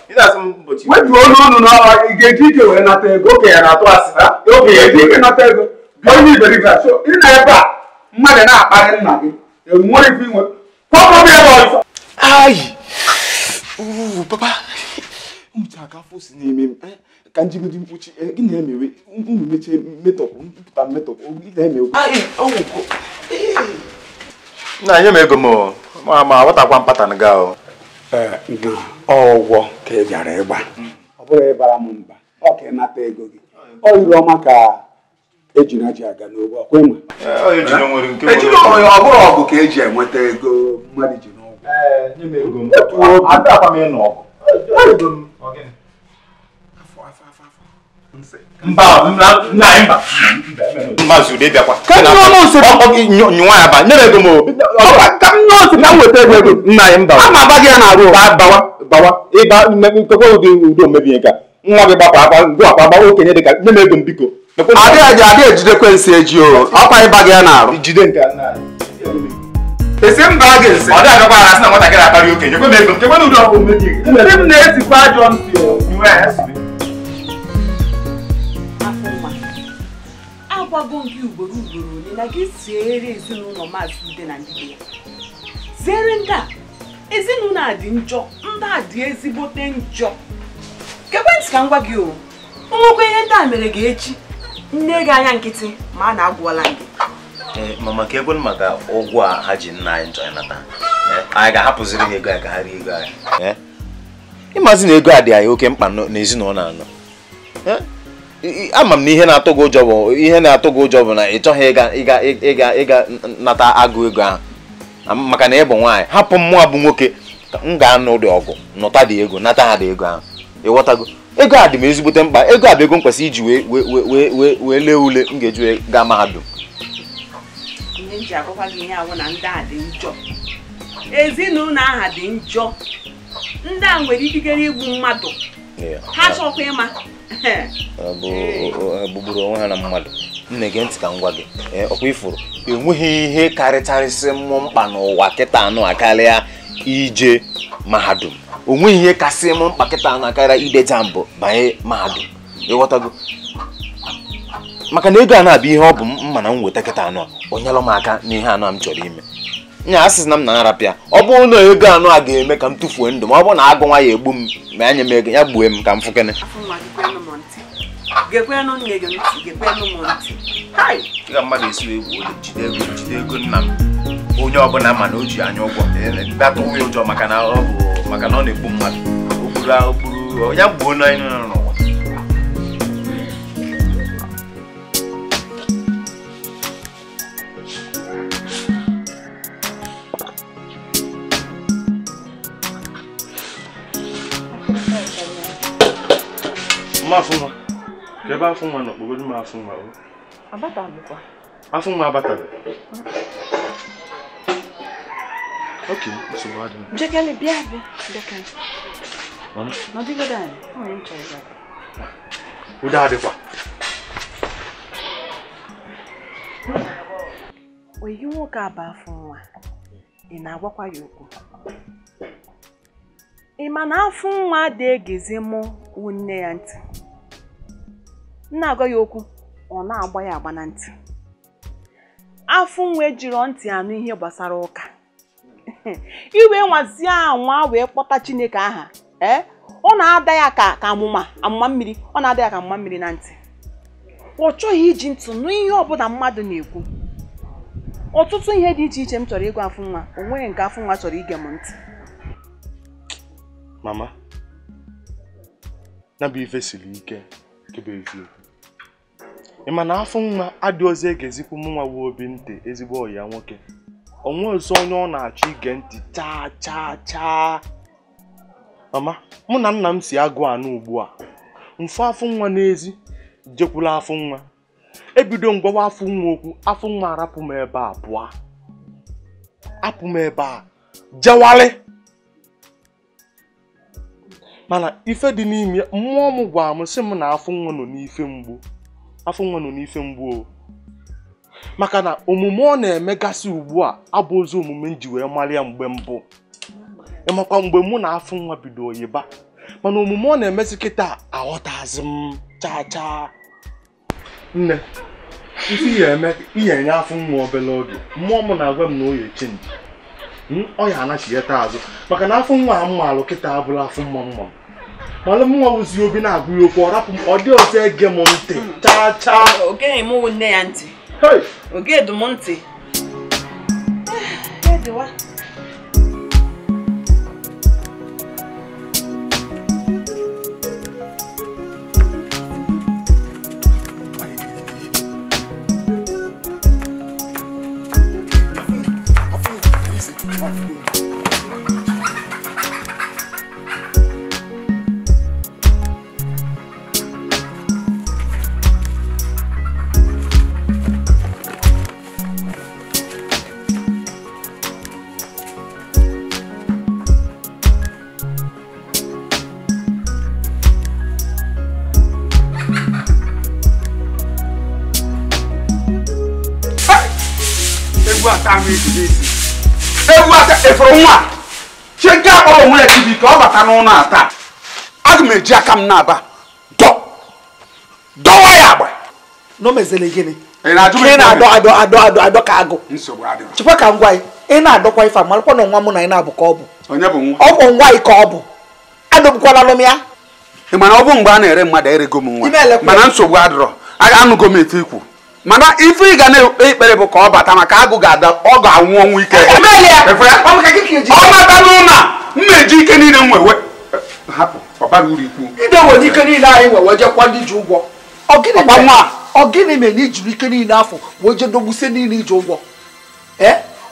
wetuo olu unu na ị ga-eji ike wee nata ego okenye na-atụ asị na okenye eji ike nata ego onye iberibe achọ ị na ebe a mmadụ na-akparị nna gị enwere ife inwe kwọkọm ebe ọzọ ayi papa m ji aka fosi n'ime m ka njigodo mkpuchi gị eh, na-emewe unu mechie metọpụ mpụta metọpụ gị na-emewe na nye m ego m ma ma aghọtakwa mpatan gị ahụ ọgwọ ka ị e bịara ịgba ọ bụrụ ịbara m mba ọ ka ịnata ego gị ọ riri ọma ka ejiri aji aga n'ogbo ọkwa ịma ọ bụrụ ọgụ ka eji enweta ego mmadụ ji eh, n'ụgwọ Maazị Ude bịakwa nyụwa ya ba nyere ego m obi ka ego nna anyị mba ama aba gị ya na-arụ bawa bawa ịba nkekwa ụdị udo ka nwa gị gbakwa akpa ngụ akpa gbawa okenye dịka nye m ego m biko adịghị adịghị ejide kwensi eji o ọkwa ịba gị ya na-arụ jide nke gị ọ dịghị agakwa na nwatakịrị okenye kwe m ego m agwago m gị ugboro ugboro ole na gị siere ezinụlọ maazị ude na ndị ya ziere ndị a ezinụlọ a dị njọ ndị a dị ezigbote njọ kekwentị ka m gwa gị o nwekwa ihe ndị a mere gị echi nne gị anya nkịtị ma a na-agwụọla gị mama eh, ka egwe maka ụgwọ a ha ji nna anyị njọ nata eh, anyị ga-ahapụziri ha ego anyị ka ha rie ego anyị eh, ịmazi na ego a dị anyị oke mkpa n'ezinụlọ anọ ama m na ihe na-atụ gị ụjọ bụ ihe na-atụ gị ụjọ bụ na ị chọghị ịga ịga ịga ịga nata agụ ego ahụ maka na ị bụ nwaanyị hapụ mmụọ bụ nwoke m ga-anụ ụdị ọgụ nụta dị ego nata ha dị ego ahụ ịghọtago ego a dị m ezigbote mkpa ego a bụ ego m kwesịrị iji wee wee wee wee lee ule m ga-eji gaa mahadum ihe m agwakwa gị ihe awụ na ndị a dị njọ ezinụlọ aha dị njọ ndị a nwere ikikere igbu mmadụ ha chọkwa ịma gbugburu onwe ha na mmadụ nne gị ntị ka m gwa gị ọkwa ifuru enweghị ihe karịcharịsị mmụ mkpa n'ụwa kịta anụ akarịa ije mahadum onweghị ihe kasị mụ mkpa kịta anụ akarịa ide jambụ banye mahadum ịghọtago maka na ego a na-abụ ihe ọ bụ mma na m nweta kịta anụ onyelụ m aka n'ihe anụ m chọrọ ime nya asịsị na m na-arapịa ọ bụrụ na ego anụ a ga-eme ka m tụfuo ndụ ma ọ bụrụ na agụ nwa ya egbu m ma anya m ego ya gbuo m ka m fụkene ga mmadụ esiwe egwu jide ego jide ego nna m onye ọbụla ma na o ji anya ụgwọ atụghị ụjọ maka na ọ bụ maka na ọ na-egbu mmadụ okpuru okpuru ya gbuo n'ụwa ma afụ nwa ka ebe nwa nọ kpogoro m afụ nwa afụ nwa abataghị ok nsogbu adịghị jekele bịa bịa jekele nọdịgodo anyị o nwere nchọ ịza oyi nwoke a bụ afọ nwa ị na-agwakwa ya okwu ị ma na afọ nwa dị egezi mụ nne ya ntị na-agwa ya okwu ọ na-agba ya agba na ntị afụ nwe jiri ntị anụ ihe gbasara ụka (laughs) iwe nwazie anwa wee kpọta chineke aha eh? ọ na-ada ya ka ka amụma amụma mmiri ọ na-ada ya ka amụma mmiri na ntị ọ chọghị iji ntụ nụ ihe ọbụla mmadụ na-ekwu ọtụtụ ihe dị iche iche m chọrọ ịgwa afụ nwa o nweghị nke afụ nwa chọrọ ige m ntị mama na ife siri ike ịma na afọ nwa adịghịzi ozi e ga-ezikwu nwa obi ntị ezigbo ọya nwoke onwe ozi onye ọ na-achọ ige ntị chaa chaa chaa mama mụ na nna m si agụ anụ ugbu a mfụ afọ nwa n'ezi jekwula afọ nwa ebido ngwawa afọ nwa okwu afọ nwa arapụ m ebe a pụọ apụ m ebe a jewalị mana ife dị n'ime mmụọ m gwara m sị m na afọ nwa nọ n'ife mgbu afọ nwa nọ n'ife mgbu o, maka na omume ọ na-emegasị ugbu a abụ ozi omume m ji wee mara mgbe mbụ ịmakwa mgbe mụ na afọ nwa bido oyiba mana omume ọ na-emezi kịta aghọtazi m chaa chaa nne isi ihe enye afọ nwa obere oge mmụọ m na-agwa m na oyi chenji hmm, ọ ya taa azụ maka na afọ nwa a mmalụ kịta abụrụ afọ mma mma m mana mụnwa si obi na-agụ ya okwu ọ rapụ m ọ dị ọzọ ege m ntị hmm. chaa chaa ogeghị m nne ya ntị oge dum ntị (sighs) bata n'ụlọ a taa aga m eji aka m na-aba dọwa ya agba n'omezele gịnị ị na-adọ adọ adọ adọ ka agụ chekwa ka ngwa ị na-adọkwa ife amarakwa na nwa mụ na ị na-abụ ka ọ bụ ọ bụ nwa ka ọ bụ adọbụkwala m ya ị mana ọ bụ mgbe a na-ere mmadụ erego m nwa mana nsogbu adịrọ anụgo m ete ikwu mana ife ị ga na-ekpere bụ ka ọ bata maka agụ ga-ada ọ ga-anwụ ọnwụ ike ọ e bata n'ụlọ m na-eji ike niile m wewe hapụ ọbara uru ikwu ide were ike niile anyị wewe jekwa ndị ji ụgwọ ọ gịnị mere na ijiri ike niile afọ wee je dogbusie niile iji ụgwọ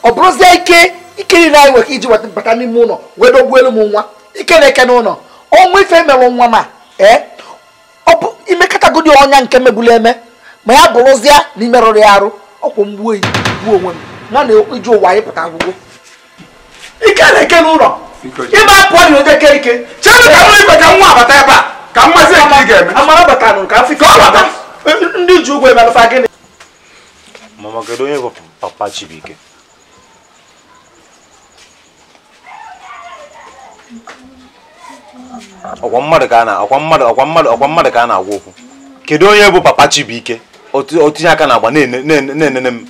ọ bụrụzie ike ike niile anyị nwere iji bata n'ime ụlọ wee dogbuo elu m nwa ike na-eke n'ụlọ ọnwa ife mere nwa ma ee ọ bụ imekọtagodi ọnya nke megbula eme ma ya bụrụzie na imerụrụ ya arụ ọkwụ mgbuo gbuo onwe m na na iju ụwa anyị pụta agwụgwọ ike na-eke n'ụlọ ịba apụọ na ụdị eke ike chere ka nwa ibeta nwa abata ebe a ka mmasị nke ị ga-eme amara batanụ ka afịka ọbata ndị ji ụgwọ emerụfa gịnị mama kedu onye bụ papa chibuike ọkwa mmadụ ka a na-agwa ọkwa mmadụ ka a na okwu kedu onye bụ papa chibuike otinye aka na-agba na-enene m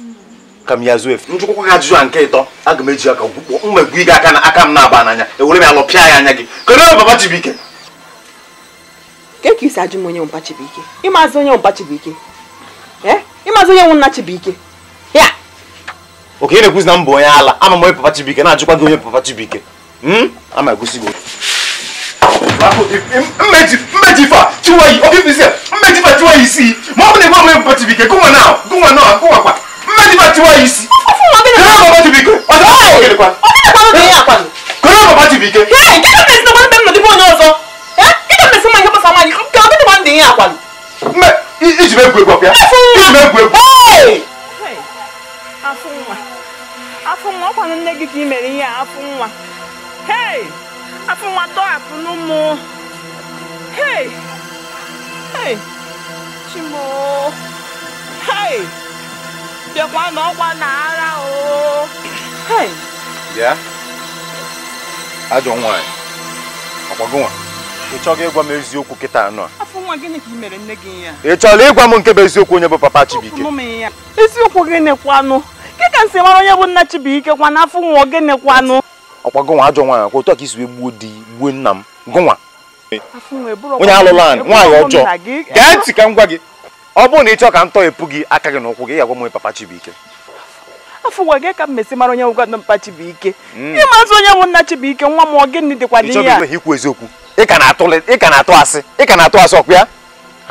ka m ya zuo efu njụkwụkwa gị ajụjụ a nke ịtọ aga m eji aka mmegbu gị aka na aka m na-aba n'anya ewere m ya lọpịa ya anya gị kedu onye papa Chibuike ka isi ajụ m onye mpa Chibuike ịmazi onye mpa Chibuike eh? ịmazi onye nwe nna Chibuike ya oke ị na-ekwuzi na m bụ onye ala ama m onye papa Chibuike na-ajụkwa gị onye papa Chibuike hmm? ama egosi gị mmeji mmeji fa tiwa yi obi fi sẹ mmeji fa tiwa yi si mọ ọbi ne bọ mi bọ tibi kẹ gunwa náà gunwa náà gunwa kwa mmeji fa tiwa yi si. ọfún wọn bí mi. kẹlẹ́ bàbá tibi kẹ ọ̀dọ̀ ọ̀dọ̀ kẹlẹ́ kwa. ọbí náà kọ́ ló bẹ̀rẹ̀ yà kwa mi. kẹlẹ́ bàbá tibi kẹ. ẹ kí ló bẹ̀rẹ̀ sinamọ́ bẹ́ẹ̀ mi lọ́dún fún ọ̀nà ọ̀sọ́ ẹ kí ló bẹ̀rẹ̀ sinamọ́ yẹ kó sàmà yìí kí ọbí náà bẹ̀rẹ̀ yà kwa mi. mẹ iji bẹ gwe gbọpia iji bẹ gwe gwe. afọ nwa afọ nwa ọ kwa nne gị ka ị mere ihe a afọ nwa. afọ nwa tọhapụ n'ụmụ hei hei chimo hei bịakwa n'ọkwa na ara o hei bịa ajọ nwaanyị ọkwago nwa ị chọghị ịgwa m eziokwu kịta anọ a afọ nwa gịnị ka ị mere nne gị ya ị chọrọ ịgwa m nke bụ eziokwu onye bụ papa Chibuike eziokwu gịnị kwanụ nke ka m si mara onye bụ nna Chibuike kwa n'afọ nwa gịnị kwanụ ọkwa gụnwa ajọ nwaanyị ọkwa otu a ka isi wee gbuo di gbuo nna m gụnwa onye alụla anyị nwaanyị ọjọọ gee ntị ka m gwa gị ọ bụrụ na ị chọọ ka m tọghepụ gị aka gị n'ụkwụ gị ị ga-agwa m papa Chibuike afọ ụwa gị ka m mesi mara onye nwụga papa Chibuike mm. ịma azụ onye nwụ nna Chibuike nwa m ọ gịnị dịkwa dị ya ikwu eziokwu ị ka na-atụ asị ị ka na-atụ asị ọkụ ya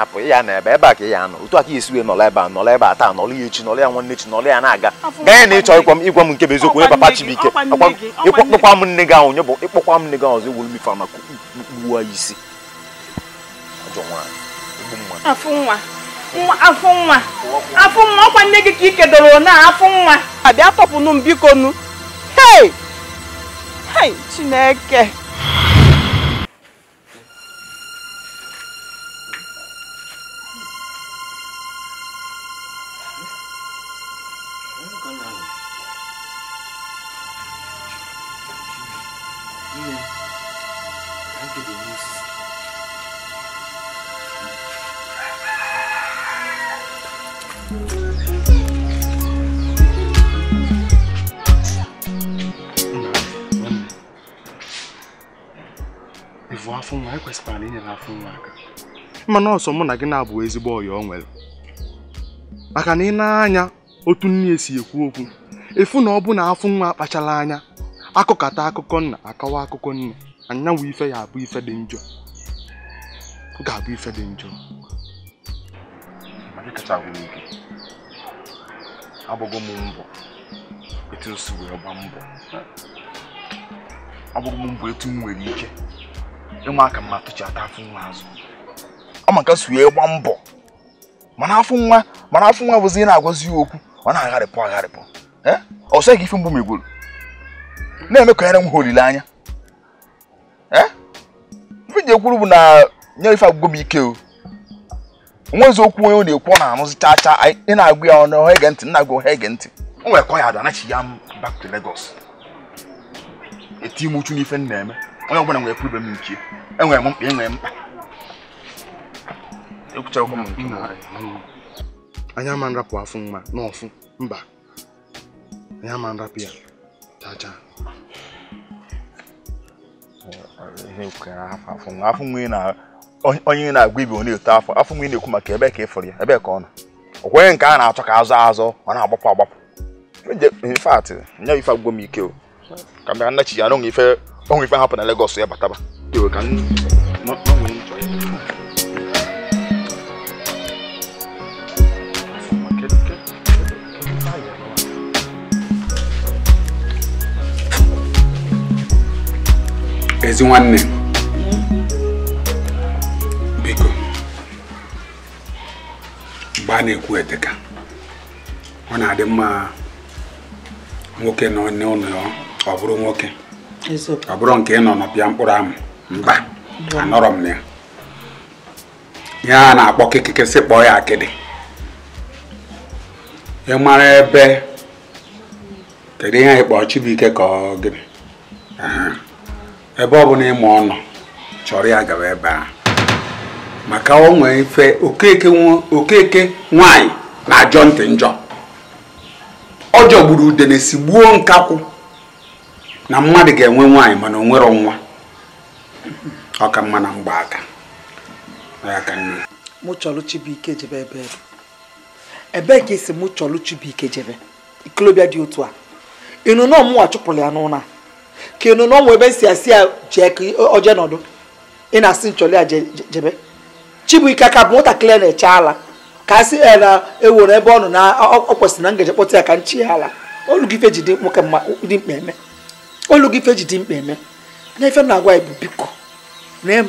hapụ ya na ebe ebe a ka ya anọ otu aka esi wee nọla ebe a nọla ebe a taa nọla ya echi nọla ya nwanne chi nọla ya na-aga gaa ya na ịchọ ịkwa m ịgwa m nke bụ eziokwu onye papa Chibuike ịkpọkwa m nne gị ahụ nye bụ ịkpọkwa m nne gị ahụ ọzọ ewuru m ife maka kpuwa isi afụ nwa afụ nwa ọkwa nne gị ka ị kedoro na afụ nwa abịa tọpụnụ m bikonu hei hei Chineke mana ọsọ mụ na gị na-abụ ezigbo ọyọ ọ nwere maka na ị na-anya otu nne esi ekwu okwu efu na ọ bụ na afụ nwa akpachara anya akụkata akụkọ nna akọwa akụkọ nne anyanwụ ife ya abụ ife dị njọ ga-abụ ife dị njọ m mbọ nwere ike ọma nke su ya gba mbọ mana afọ nwa mana afọ nwa bụzi na-agwazi okwu ọ na-agharịpụ agharịpụ ọ sịghị ife mgbu megwuru na-emekọnyere eme m ha olileanya ife ji ekwuru bụ na nye ife agwụgwọ m ike o nwezi okwu onye ọ na-ekwu ọ na-anụzi cha cha ị na-agụ ya ọnụ ọha ege ntị nna agụ ọha ege ntị o nwere kọ ya ada anachi ya m back to Lagos eti m uchu n'ife m na-eme onye ọbụla nwere kwuru ibe m nke enwere m mkpa enwere mkpa ekwuchaa anya ma nrapụ afụ mma n'ọfụ mba anya ma nrapụ ya chacha onye na-agwa ibe ọ na-eto afọ afọ mgbe ị na-ekwu maka ebe ka ị fụrụ ya ebe ka ọ nọ o kweghị nke a na-achọ ka azụ azụ ọ na-agbapụ agbapụ infat nya ife agwụgwọ m ike o ka bịa nnachi ya na onwe ife ahapụ na Legọs ya bataba ka ezi nwanne biko mgbe a na-ekwu eteka ọ na-adị mma nwoke nọ n'ụlọ ọ bụrụ nwoke ọ bụrụ nke ị nọ n'ọpịa mkpụrụ amụ mba anọrọ m na ya ihe na-akpọ kịkịkịsị kpọọ ya akịdị ị mara ebe kedu ihe anyị kpọọ Chibuike ka ọ gịnị ebe ọ bụla ịma ọnọ chọrọ ya gawa ebe a maka o nwee ife okeke nwanyị na-ajọ ntị njọ ọ jọgburu udene gbuo nkakwụ na mmadụ ga-enwe nwanyị mana o nwa ọ ka mma na mgbaaka mụ chọrọ ike jebe ebe e. ebee ka esi mụ chọrọ Chibuike jebe ikolobịa dị otu a ịnụ na chụpụrụ ya n'ụlọ kinu na ọnwa ebe si asị ya jee ka oje nọdụ ị na-asị nchọli ya jebe chibuike aka bụ nwatakịrị na-eche ala ka a sị ya na ewere ebe ọ nọ na ọ kwesịrị na ngeje kpọta ya ka nchi ya ala olu gị ife ji dị mkpa eme na ife m na-agwa ya biko na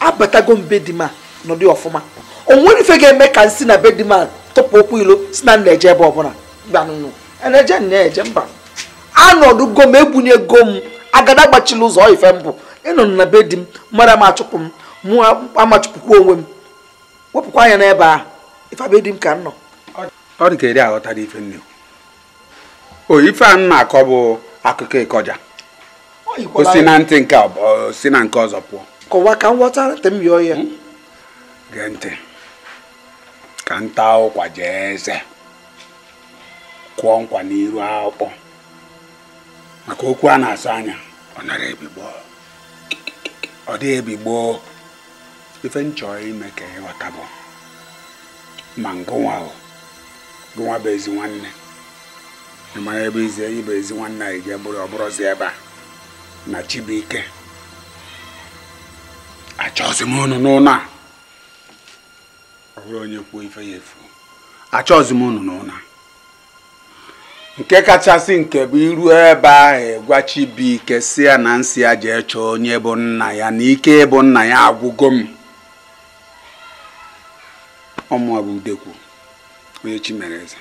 abatago mbe dị ma nọdụ ọfụma o nwere ife ga-eme ka nsị na be dị ma tụpụ okwu ilo si na nna eje ebe ọbụla e mba nụnụ na-eje nna eje mba anọdụgo m egbunyego m agada gbachila ụzọ ife mbụ ịnọ na be di m mara m achụpụ m mụ amachụpụkwa onwe m wepụkwa anya n'ebe a ife be di m ka m nọ ọ dị ka eri aghọtara ife nne o ife a m na-akọ bụ akụkọ ịkọja o si na ntị nke o si na nke ọzọ pụọ kọwa ka m ghọtara ntị m yọọ ya hmm? gee ntị ka nta ụkwa jee eze kụọ nkwa n'iru akpọ maka okwu a na asa anya ọ ebi ọ dịghị ebigbo ife m ime ka ịghọta bụ ma ngụnwa gụnwa bụ ezi nwanne ebe ize bụ ezi nwanne anyị ji bụrụ ebe a na Chibuike achọzi m a ọ bụrụ onye kwuo ife ya efu achọzi m n'ụlọ nke kachasị nke bụ iru ebe ahụ gwa Chibuike si ya na nsị ya jee chọọ onye bụ nna ya na ike ịbụ nna ya agwụgo m ọmụabụ udekwu onye chi mere eze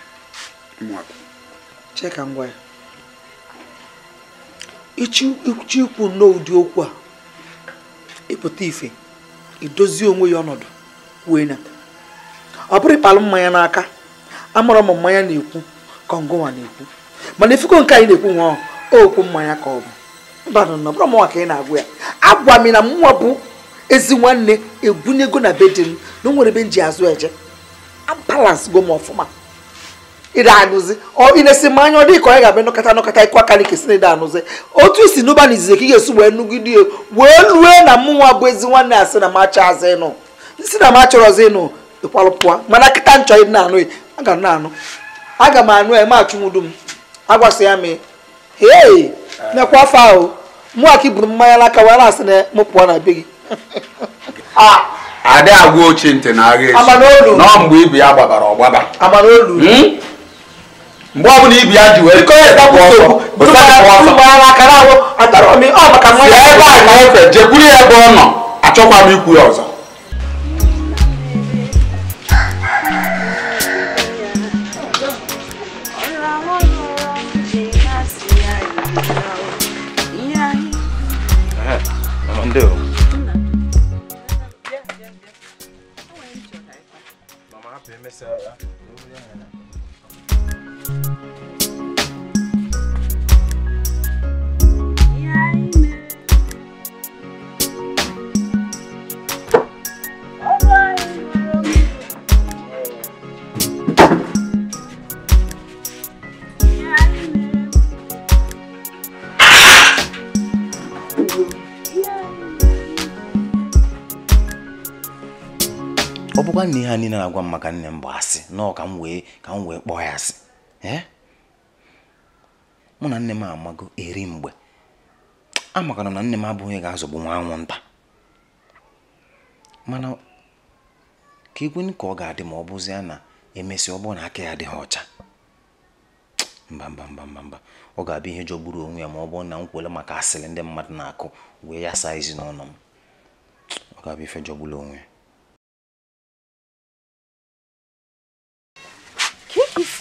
cheka ngwa ya ịchị ikwu nnọọ ụdị okwu a ịpụta ife idozi onwe ya ọnọdụ kwue na ọ bụrụ ịkpalụ mmanya n'aka amara m mmanya na-ekwu ka na-ekwu mana ifuko nke anyị na-ekwu nwa ahụ okwu mmanya ka ọ bụ mbanụ na ka ị na-agwụ ya agwa m na mụnwa bụ ezi nwanne ego na be di m na o nwere ebe m ji azụ eje balans go m ọfụma ịda anụzi ị na-esi mmanya ọ dị ka ọ ga-abịa nọkọta nọkọta ịkụ aka na si na ịda anụzi otu isi n'ụba na izizi ka ị ga-esi wee nugide wee lue na mmụnwa bụ ezi nwanne asị na macha azụ ịnụ si na ma chọrọzi ịnụ ịkwalụ mana kịta nchọ ịdị na-anụ a ga na-anụ aga m anụ eme achụmụdu m agwasị ya mee hei mekwa afọ ahụ mụ aki buru mmanya n'aka wee na-asị na m pụọ na be gị (laughs) ah! adị agwa ochie ntị na agha echi nọ mgbe ibu ya gbabara ọgbaba hmm? mgbe ọ bụla ibi ya ji wee ọsọ, ebe a na efe jekwuru ya ebe ọ nọ achọkwa m ikwu ya ọzọ do? Mama, happy, Miss. nwanne ha niile na-agwa m maka nne m bụ asị nọọ ka m wee ka m wee kpọọ ya asị eh? mụ na nne m amago eri mgbe amakana na nne m abụghị onye ga-azọgbu nwa anwụnta mana ka e ka ọ ga-adị ma ọ bụzie na emesịa ọ bụrụ na aka ya adịghị ọcha mba mba mba mba ọ ga-abịa ihe jọgburu onwe ya ma ọ bụrụ na m kwele maka asịrị ndị mmadụ na-akụ wee ya saa ezinụlọ m ọ ga-abịa ife jọgburu onwe ya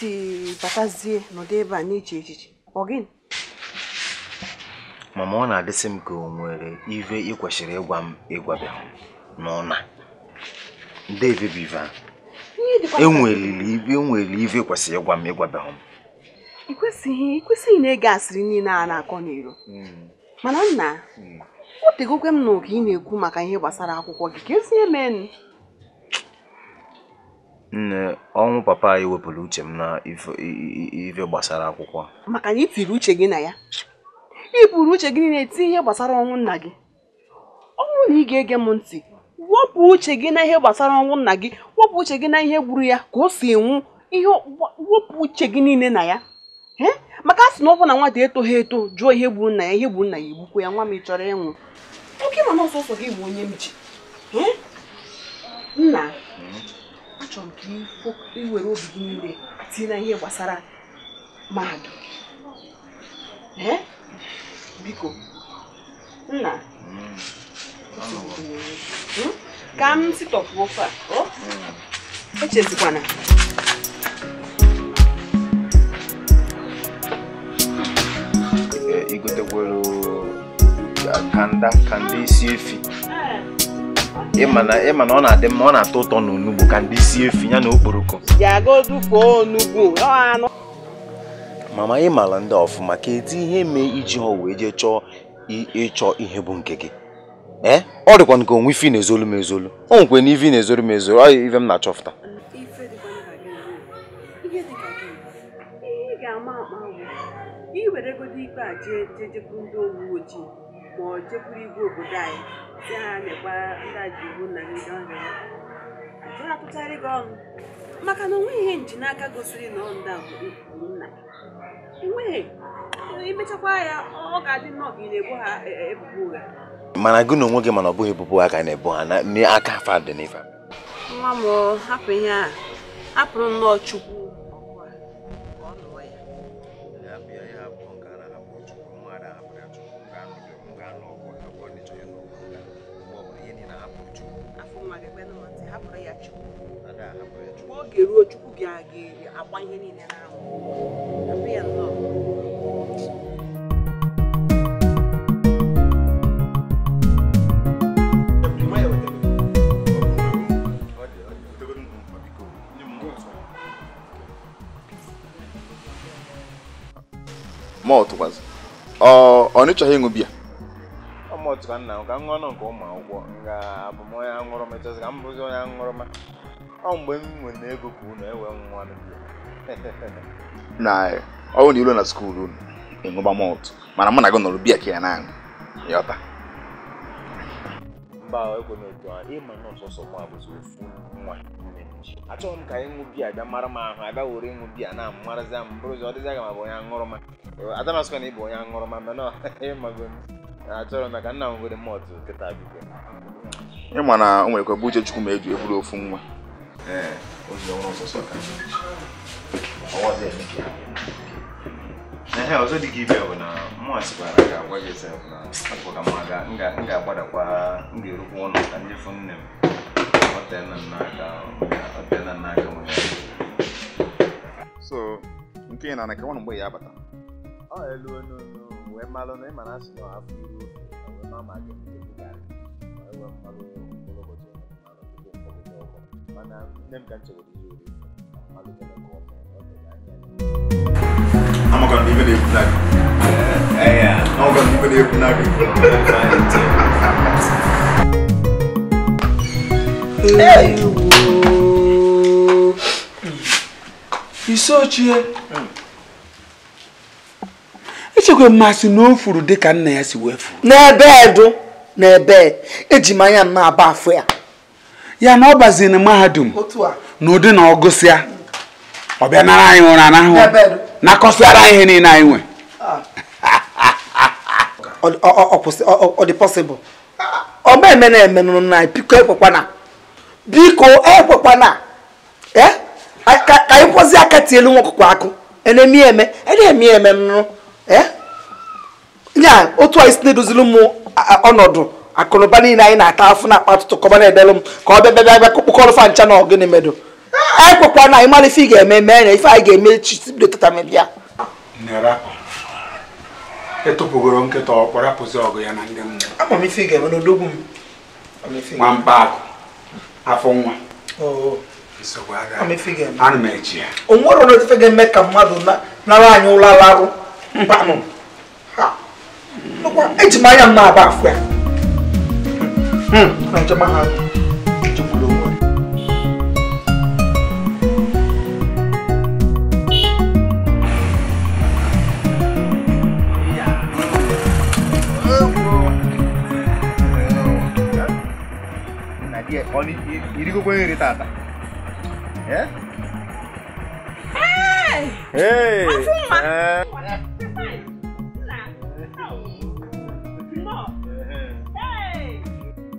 si batazie n'ụdị ebe a na echiche ọ mama ọ na-adịsị m ka o nwere ive ị kwesịrị ịgwa m ịgwabịa nde ndebe bụ a enweriri e e ive kwesịrị ịgwa m ịgwabịa m ị kwesịghị na-ege asịrị niile a na-akọ n'iro hmm. mana nna hmm. o tegokwe m n'oge ị na-ekwu maka ihe gbasara akwụkwọ gị ka ezinye Nne, ọnwụ papa anyị wepụrụ uche m na ife gbasara akwụkwọ. Maka na ị tiri uche gị na ya. Ị buru uche gị na eti ihe gbasara ọnwụ nna gị. Ọnwụ na ị ga-ege m ntị, wepụ uche gị na ihe gbasara ọnwụ nna gị, wepụ uche gị na ihe gburu ya ka o si nwụ, ihe wepụ uche gị niile na ya. Maka a sị na ọ bụ na nwata etoghị eto jụọ ihe gburu nna ya, ihe gburu nna ya egbukwu ya, nwa m ị chọrọ ịnwụ. Oke mana ọsọsọ gị bụ onye m ji. Nna achọrọ m ka iwere obi gị niile tinye na ihe gbasara mahadum eh? biko nna hmm? ka m sitọpụ ofe oh? a echezikwana eh, kanda kanda isi efi ịma na ọ na-adị mma ọ na-atọ ụtọ na ka ndị sie efi ya na okporoko mama ị mara ndị ọfụma ka edi ihe mee iji ha wee jee chọọ ịchọ ihe bụ nke gị ee eh? ọ dịkwa nke onwe ife na-ezolu m ezolu o nwekwe na ife na-ezolu m ezolu ọ ife m na-achọfụta iweregodo ikpe a jee jejekwuru ndị uwe ma ọ jekwuru igwe obodo anyị ndị na nyekwa ndị aji iwu na ndị ọrịa ajụrụ apụtarị gị ọnụ maka na onweghị ihe nji n'aka gosiri na ọndị a bụ nna enweghị imechakwa ya ọ ga-adị nnọọ ka ị na ebo ha e, e, ebubo ụgha mana gị na onwe gị mana ọ bụghị ebubo a ga na-ebu ha n'aka fadenifa nwa m hapụ ihe a hapụrụ nnọọ chukwu ga-eruo chukwu gị a ga-agba ihe niile n'anwụ mọltụkwazị ọ nịchọghị ịṅụ bia ọ mọltụ ka nna m ka m nke ụmụ akwụkwọ nga abụ m onye aṅụrụma ka m bụzi onye aṅụrụma ọ mgbe m nwere ego ka unu enwe nwa (laughs) na bụrụ na iru na skuul unu ịṅụba mana mụ na gị nọrọ bia ka ya na-aṅụ yọta mba otu a ịma na ọsọsọ abụzi ofu nwa achọghị m ka anyị ṅụ biya bịa mara ahụ abịa were ịṅụ biya na marazi m bụrụzi ọ dịzi aga m abụ onye aṅụrụma adamasịkwa na ịbụ onye aṅụrụma mana (laughs) nwere kịta biko na o bụ uche chukwu ma eji eburu ofu nwa ee o ji ọnwụ ọsọsọ ka ihe ọzọ dị gị bụ na mụnwa sikwara ka agwa gị na apụka ma ga nga ga-agbadakwa ọrụ ga ka ndị nne m ọtena n'aka na so nke ị na-ana ka ya ọ na ma ma mana nne m ka nchewere ihe ori amaka n'ibe na-ekwu na gị amaka n'ibe na-ekwu na gị isochie echekwa mmasị na o furu nna ya si wee eji m anya m na-aba afọ ya ya na ọ baziri na mahadum n'ụdị na ọ gụsịa ọ bịa nara anyị ụra anahụ na ara ihe niile anyị nwe (laughs) ọ dị ọ eme na eme na biko ekwekwana biko ekwekwana eh? ka anyị kwụzi aka tie elu nwokwukwa akụ eme eme nụ eh? otu a isi na-edozili m ọnọdụ akụnụba niile anyị na-ata afụ na akpatụtụ kọba na-edelụ m ka ọ bịa bịa bịa kpụkọrọ fa ncha na ọgịnị medụ ekwekwa na anyị mara ife ị ga-eme mee na ife anyị ga-eme chibido tata mebịa ta nkịta na ndị ga-eme m mba afọ ka mmadụ nara anyị ụlọ eji m anya aba afọ ya hmm, Medyo mahal. Medyo bulungan. ఇరిగి పోయి తాత ఏ hey.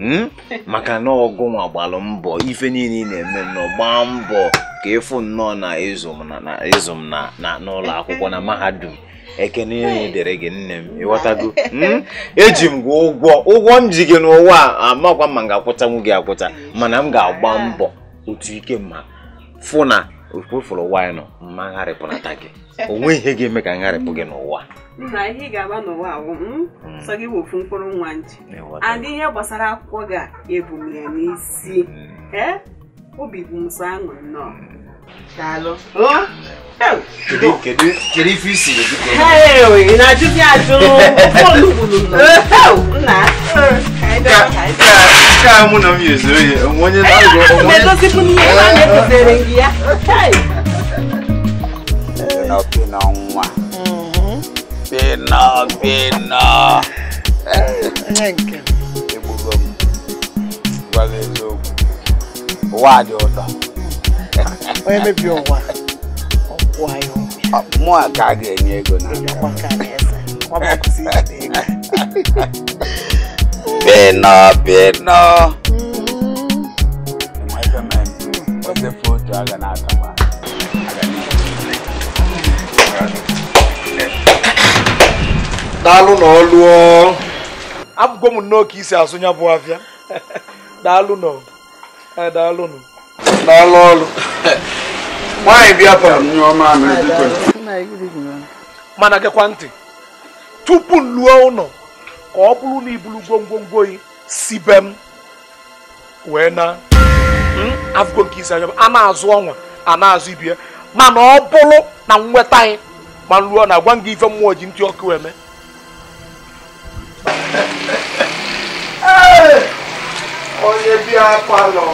Hmm? (laughs) maka na ọgụnwa gbalụ mbọ ife niile na-eme nọ gbaa mbọ ka ịfụ nnọọ na ịzụ m na n'ụlọ akwụkwọ na mahadum ekene ihe dere gị nne m ịghọtago hmm? eji m gị ụgwọ ụgwọ m ji gị n'ụwa amakwa ma m ga-akwụtanwu gị akwụta mana m ga-agba mbọ otu ike ma fụ na okpofụrụ wino mmagharịpụnata gị o ihe ga-eme ka ngharịpụ gị n'ụwa na ihe ị ga-agba n'ụwa awụ hmm, hmm. sọ gị wofu mkpụrụ nwa nji adị ihe gbasara akwụkwọ gị ebu ya n'isi hmm. ee obi bụ m aṅụ nnọọ kedu ife isiri na-ajụ gị ajụ (laughs) ka mụ na na (laughs) Pino Pino nwa. Pino Pino. Egbugo m gwa gị eziokwu ụwa dị ụtọ. Onye mebi ụwa ọkwụ anyị mụ a ka a ga-enye ego na Pino Pino. Enweta m ose foto a ga na-atọ. daalụ na ọlụọ abụgo m nnọọ ka isi azụ ya bụ afịa (laughs) daalụ nọ daalụ nọ daalụ ọlụ (laughs) nwaanyị bịa bara m nye ọma mana gekwa ntị tupu m lụọ ụlọ ka ọ bụrụ na ibulu gwongwongwo yi si be m wee na hmm, afụgo nke isi anya a na-azụ ọnwa a na-azụ ibie mana ọ bụrụ na nweta anyị ma m na gwa m gị ife mmụọ ji ntị ọkụ eme onye bịa palọ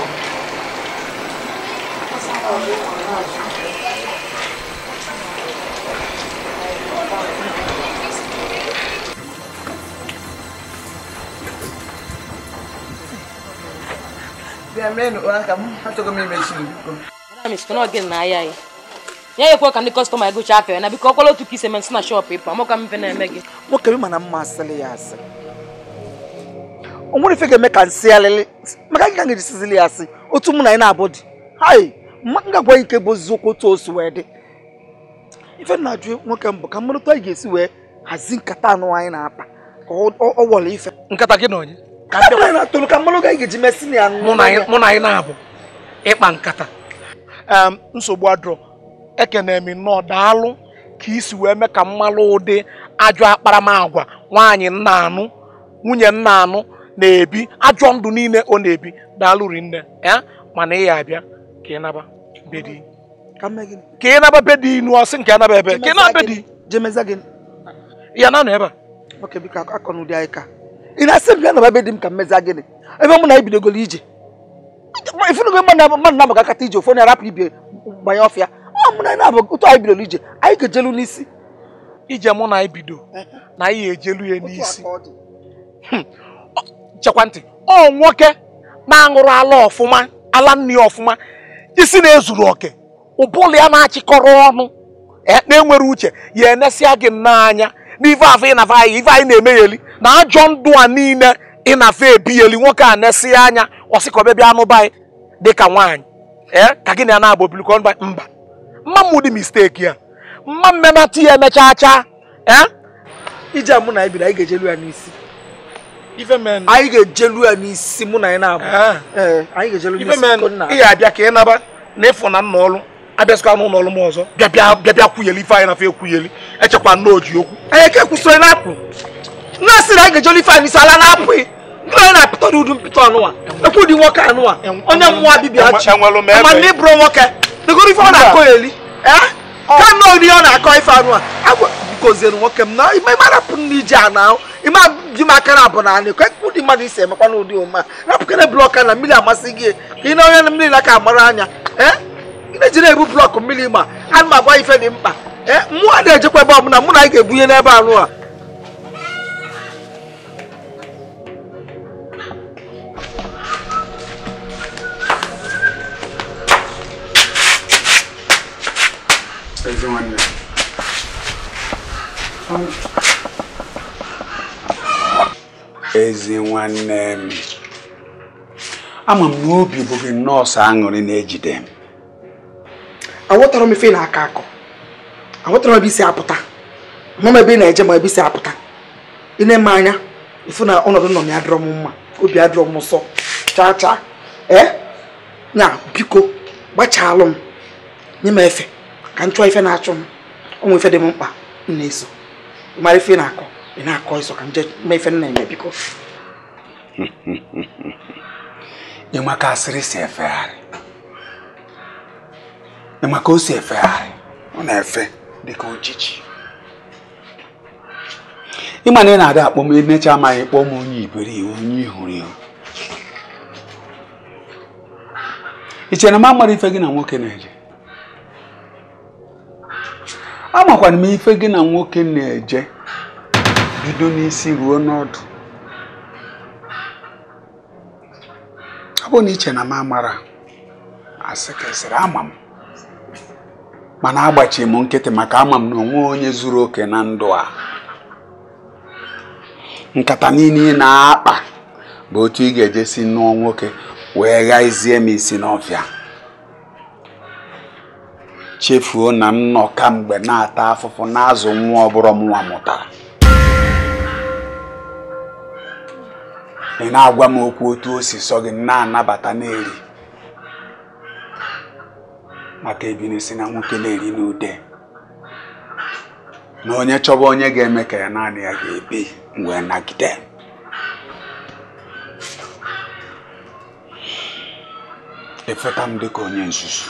ya ekwe ka ndị kọstọma gụcha apịa na biko ọkwala otu ka ise mesị na shọp ịpa mụ ka mfe na-eme gị nwoke bi mana mma asịrị ya asịrị o nwere ife ga-eme ka nsị alịlị maka gị ka ga-ejisizili ya asị otu mụ na ị na-abụ dị hai ngagwa ike bụ oziokwu otu osu wee dị ife na-ajụ nwoke mbụ ka mmadụ anyị ga-esi wee hazi nkata anụ anyị na-akpa ka ọ wọla ife nkata gị na onye ka anyị na-atụrụ ka mmadụ anyị ga-eji mesị na ya mụ na anyị na-abụ ịkpa nkata nsogbu adụrọ ekene m nnọọ daalụ ka isi wee mee ka mmalụ ụdị ajọ akparamagwa nwaanyị nna anụ nwunye nna anụ na-ebi ajọ ndụ niile ọ na-ebi daalụ rinne ya mana ị ya abịa ka ị naba bedi ka ị naba bedi inu ọsị nke anaba ebe ka ị naba bedi ya na nọ ebe a ị na-asị m bịa naba be m ka mmeza gịnị ebe mụ na ebidogoro ije ifunugo mmadụ na-amaga akata ije ofu na arapụ ibe gbanye ọfịa ọ mụ na na-abụ otu anyị bidoro ije anyị ga-ejelu n'isi ije mụ na anyị bido na anyị ejelu ya n'isi chekwa ntị ọ nwoke na-aṅụrụ ala ọfụma ala nni ọfụma isi na-ezuru oke ụbụla ya na-achịkọrọ ọnụ e, na-enwere uche ya enesịa gị n'anya na n'ife afọ ịnafa ife anyị na-eme eli na ajọ ndụ a niile ịnafa ebi eli nwoke a na-esi anya ọsịkọbebịa anụba anyị dịka nwaanyị ee ka gị na ya na-abụ bilikọ mba mba mma dị misteki ya mma mmemati ya emechaa chaa ee ije mụ na ibiri anyị ga-ejelu ya n'isi anyị ga-ejelu ya n'isi mụ na anyị na-abụ ị ga-abịa ka ị naba na ịfụ na nna ọrụ abịasịkwa n'ụlọ ọrụ m ọzọ bịabịa kwuyeli ife anyị na fe ekwuyeli echekwa nna eh, oji okwu anyị ka na-apụ nna sị na anyị ga-ejelu ife anyị n'isi ala na e. na n'udu anụwa ekwu nwoke anụwa eh, onye eh, mmụọ ma nwoke dịgoro ife ọ na-akọ eli ka nna ọ na-akọ ife anụwa goziere nwoke m na ime arapụ na iji a na ime ji m aka na abụ na anị kwe ụdị mmadụ isi emekwa na ụdị ụma rapụkere blọk na mmiri amasị gị ka ị na onye mmiri na aka mara anya ị na-eji na-ebu blọk mmiri ma a na m agwa ife dị mkpa ee mmụọ na-ejekwa ebe ọbụla mụ na anyị ga-ebunye n'ebe anụ a ezi nwanne ezi nwanne m ama m na obi bụ gị nọọsụ aṅụrị na-ejide m aghọtara m ife na-akọ akọ aghọtara m ebe isi apụta ma m ebe ị na-eje ma ebe isi apụta ị na-eme anya ifu na ọnọdụ nọ m ya dịrọ m mma obi adịrọ m nsọ chaa chaa ee na biko gbachalụ m nye m efe ka m chụọ ife na-achụ m ọ nwee ife dị m mkpa m na-eso mara ife na-akọ ị na-akọ ịsọ ka mmefe nna eme biko ịma (laughs) ka asịrị si efegharị ịma ka o si efegharị ọ na-efe dịka ojiji ịma na ị na ada akpọ m emecha amaghị kpọọ m onye iberibe onye ihuru ihu i na m amara ife gị na nwoke na-eje amakwana m ife gị na nwoke na-eje bido n'isi ruo n'ọdụ ọ bụ na iche na m amara asị ka ama m mana agbachi m nkịtị maka ama m na onwe onye zuru oke na ndụ a nkata niile ị na-akpa bụ otu ị ga-eje si nụọ nwoke wee gha izie m isi n'ọfịa chefuo na nnọ kamgbe na-ata afụfụ na-azụ nwa ọbụrụ nwa mụtara ị na-agwa m okwu otu o si sọ gị na-anabata na-eri maka ebiri si na nwoke na-eri n'ude na onye chọba onye ga-eme ka ya naanị ya ga-ebi wee nagide efeta m dịka onye nzuzu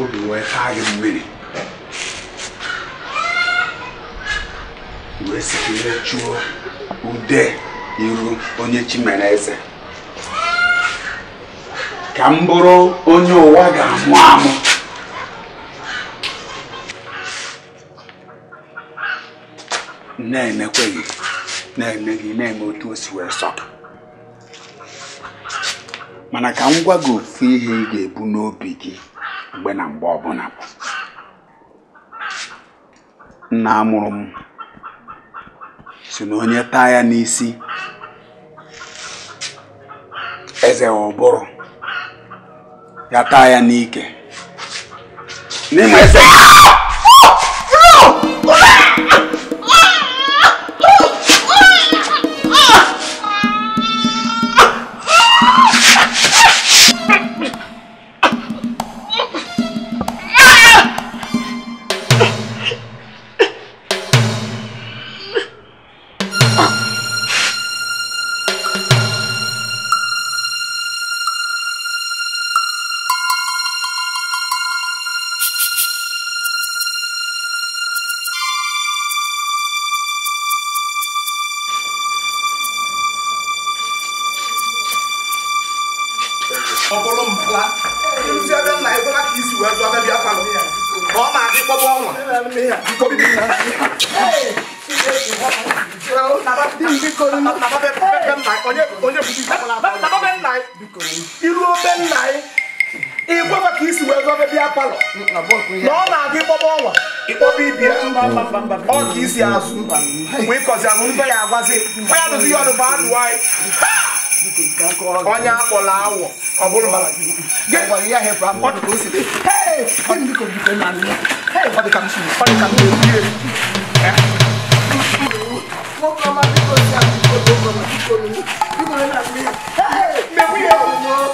obi wee taa gị mmiri wee sikere chụọ ude iru onye chi eze ka m bụrụ onye ụwa ga-amụ amụ amụ na gị na-eme gị na-eme otu o si wee sọ mana ka m gwa gị ofu ihe ị ga-ebu n'obi gị mgbe na mgbe ọbụla nna amụrụ m si na onye taa ya n'isi eze ụbụrụ ya taa ya n'ike n'ime eze anyị ikwefa ka isi wee zọbe bịa palọ mm, na ọ na-adị ịkpọba ọnwa ịkpọba ibia ọ ka isi azụ wee mm. mm. kọzi ahụ mbe ya agwazi mgbe ya dozi ihe ọdụ bụ adụ Get away here, awọ ọ bụrụ mara Hey! to Hey, Hey, the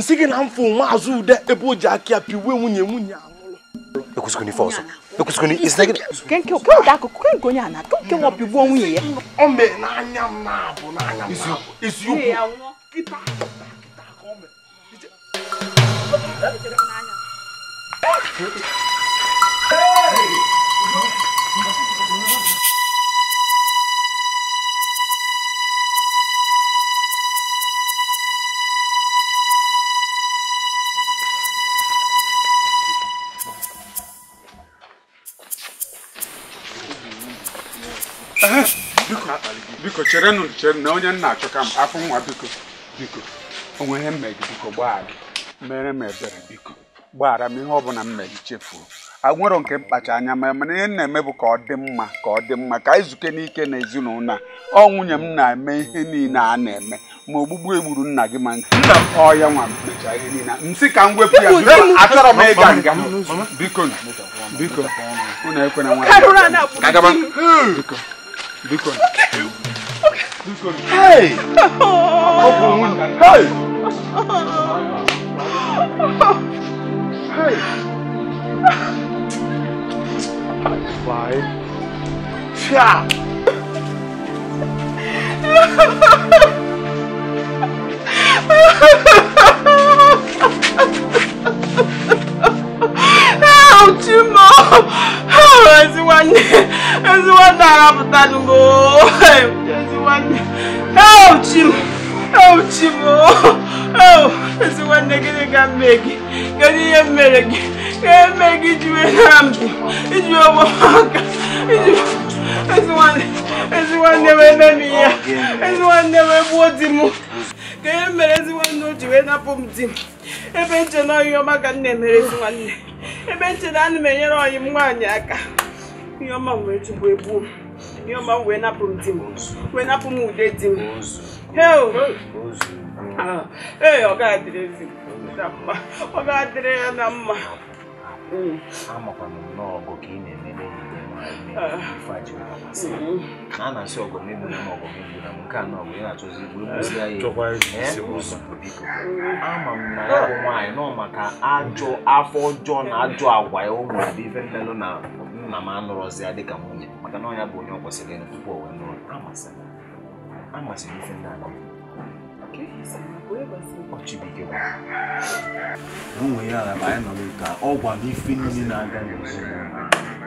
nsiki na mfo nwa de, ude ebe o ji aka ya piwe nwunye nwunye anwụrụ ekwesịkwụna ife ọzọ ekwesịkwụna isnagị kenke okenke akụkụ kenke onye ana kenke nwa pigbuo nwunye ya o mee n'anya m na-abụ n'anya m isiokwu kịta kịta ka o mee Hey! biko cherenụ chere na onye nna achọ ka m afọ nwa biko biko onwe ihe mmegị biko gbaa gị mere m ebere biko gbaghara m ihe ọbụla m mere chefuo agwero nke mkpacha anya ma mana ihe na-eme bụ ka ọ dị mma ka ọ dị mma ka anyị zuke n'ike na ezinụlọ ọ nwunye m na-eme ihe niile a na-eme ma ogbugbu egburu nna gị ma nke. nna m ọ ya nwa m mechaa ihe niile nsị ka m wepụ ya achọrọ m ịga nga biko biko unu ekwena nwa biko biko Hey! Open Hey! Hey! Fly. Cha! Ha ha ha! chimo oh, ezi nwanne ezi nwanne gị ihe mere ka mbụ ezi nwanne wee di ebe ebe ntị na m enyere ọyịm m nwaanyị aka ihe ọma m ebu chụgbu ihe ọma m wee napụ m di m wee napụ m ude di m ee ọ ga-adịrị ezi ọ ga-adịrị ya na mma a na-asị ọgọmegbu na ọgọmegbu na nke a nọbụ ya na-achọzi gburugburu ya ama m na ya bụ nwaanyị nọ maka ajọ afọ ọjọọ na ajọ agwa ya ụmụ dị ife mmelụ na nna m anụrọzi ya dịka nwunye maka na ọnya bụ onye ọ kwesịrị ịnụ tupu o wee nụrụ amasịrị ife ndị ala Onwe ya ala ma anyị nọ n'ụka ọ gwara ife niile na-aga n'ezinụlọ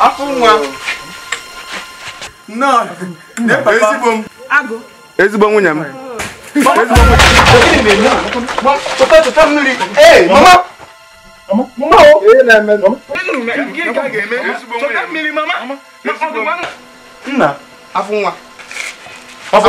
afọ nwa nnọọ ezigbo m ezigbo nwunye m ezigbo nwunye m No. Nna, afọ nwa. Afọ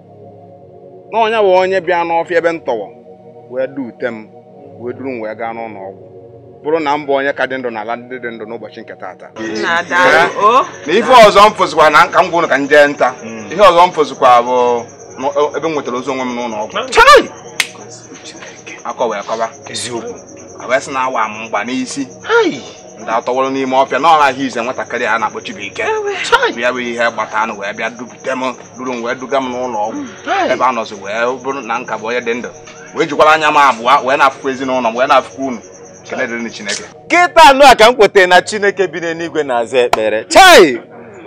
na onye bụ onye bịa n'ọfịa ebe m tọwọ wee duute m wee duru m wee gaa n'ụlọ ọgwụ bụrụ na m onye ka dị ndụ n'ala ndị dị ndụ n'ụbọchị nke taata eh? na ife ọzọ m fụzikwa na nka m ka m jee nta hmm. ihe ọzọ m fụzikwa bụ e, ebe m nwetara ozi onwe m n'ụlọ ọgwụ akọ wee kọba eziokwu wee sị na awa m mgba n'isi ndị atọwụrụ n'ime ọfịa na ọha ahụ ize nwatakịrị a na-akpọ Chibuike ya bụ ihe gbata anụ wee bịa dupụta m duru m wee duga m n'ụlọ ọgwụ hmm, ebe a nọzi wee bụrụ na nka bụ onye dị ndụ wee jikwara anya m abụọ wee na-afụkwa ezinụlọ m wee na-afụkwa unu kele dịrị Chineke kịta anụ a ka m kwetara na Chineke bi n'eluigwe na-aza ekpere chai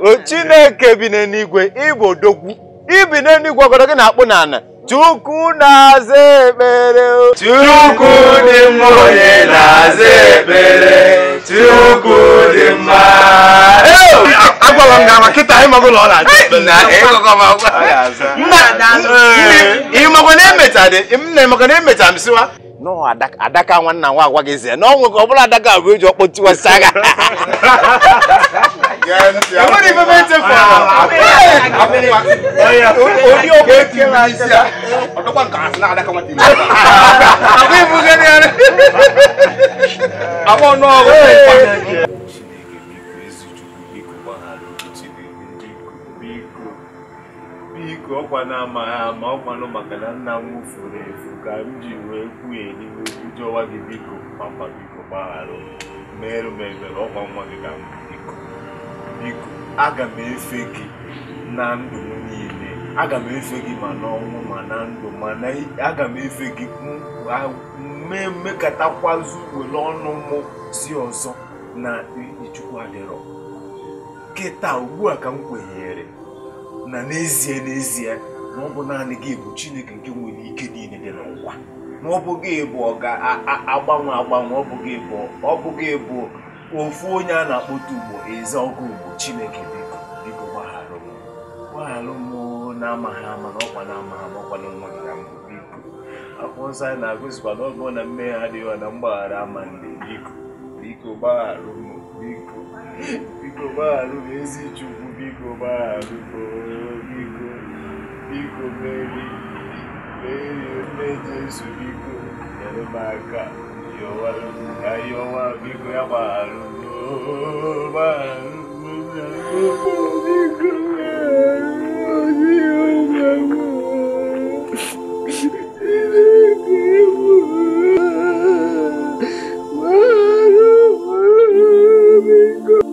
o Chineke bi n'eluigwe ịbụ odogwu ibi n'eluigwe ọgọdọ gị na-akpụ n'ala Chukwu na-aza ekpere Chukwu dị mma onye na-aza ekpere Tiogo! ngama kịta anyị eh, magụ ụlọ ọ na-adị na emecha m siwa adaka nwanna nwa agwa gị zie na ọ ọ bụla adaka abụ eji ọkpọtiwasị agha enwere biko ọkwa na-amaghị ama ọkwanụ maka na nna m furu efu ka m ji wee kwuye n'ihu jọwa gị biko papa biko gbaghara merụ m ọkwa nwa gị ka m biko biko aga m efe gị na ndụ m niile aga m efe gị ma n'ọnwụ ma na ndụ mana aga m efe gị mee mmekọtakwazu were ọnụ mụ si ọzọ na ichukwu adịrọ taa ugbu a ka m kwenyere na n'ezie n'ezie na ọ bụ naanị gị bụ Chineke nke nwere ike niile dị n'ụwa na ọ bụ gị bụ ọ ga-agbanwe agbanwe ọ bụ bụ ọ bụ gị bụ ofu onye a na-akpọta ugbo eze ọgụ ugbo Chineke biko biko gbaghara m gbaghara m na-amaghị ama na ọkwa na-amaghị ama ọkwa na nwa gị na mbụ biko akwụkwọ nsọ anyị na-agụzikwa na ọ bụrụ na mmehie adịghị na mgbaghara ama ndị biko biko gbaghara m biko biko gbaghara m ezi Chukwu biko gbaghara m biko mmeri nne Jesu biko nyere m aka ka ihe ọnwa biko ya gbagharụ Oh, my God.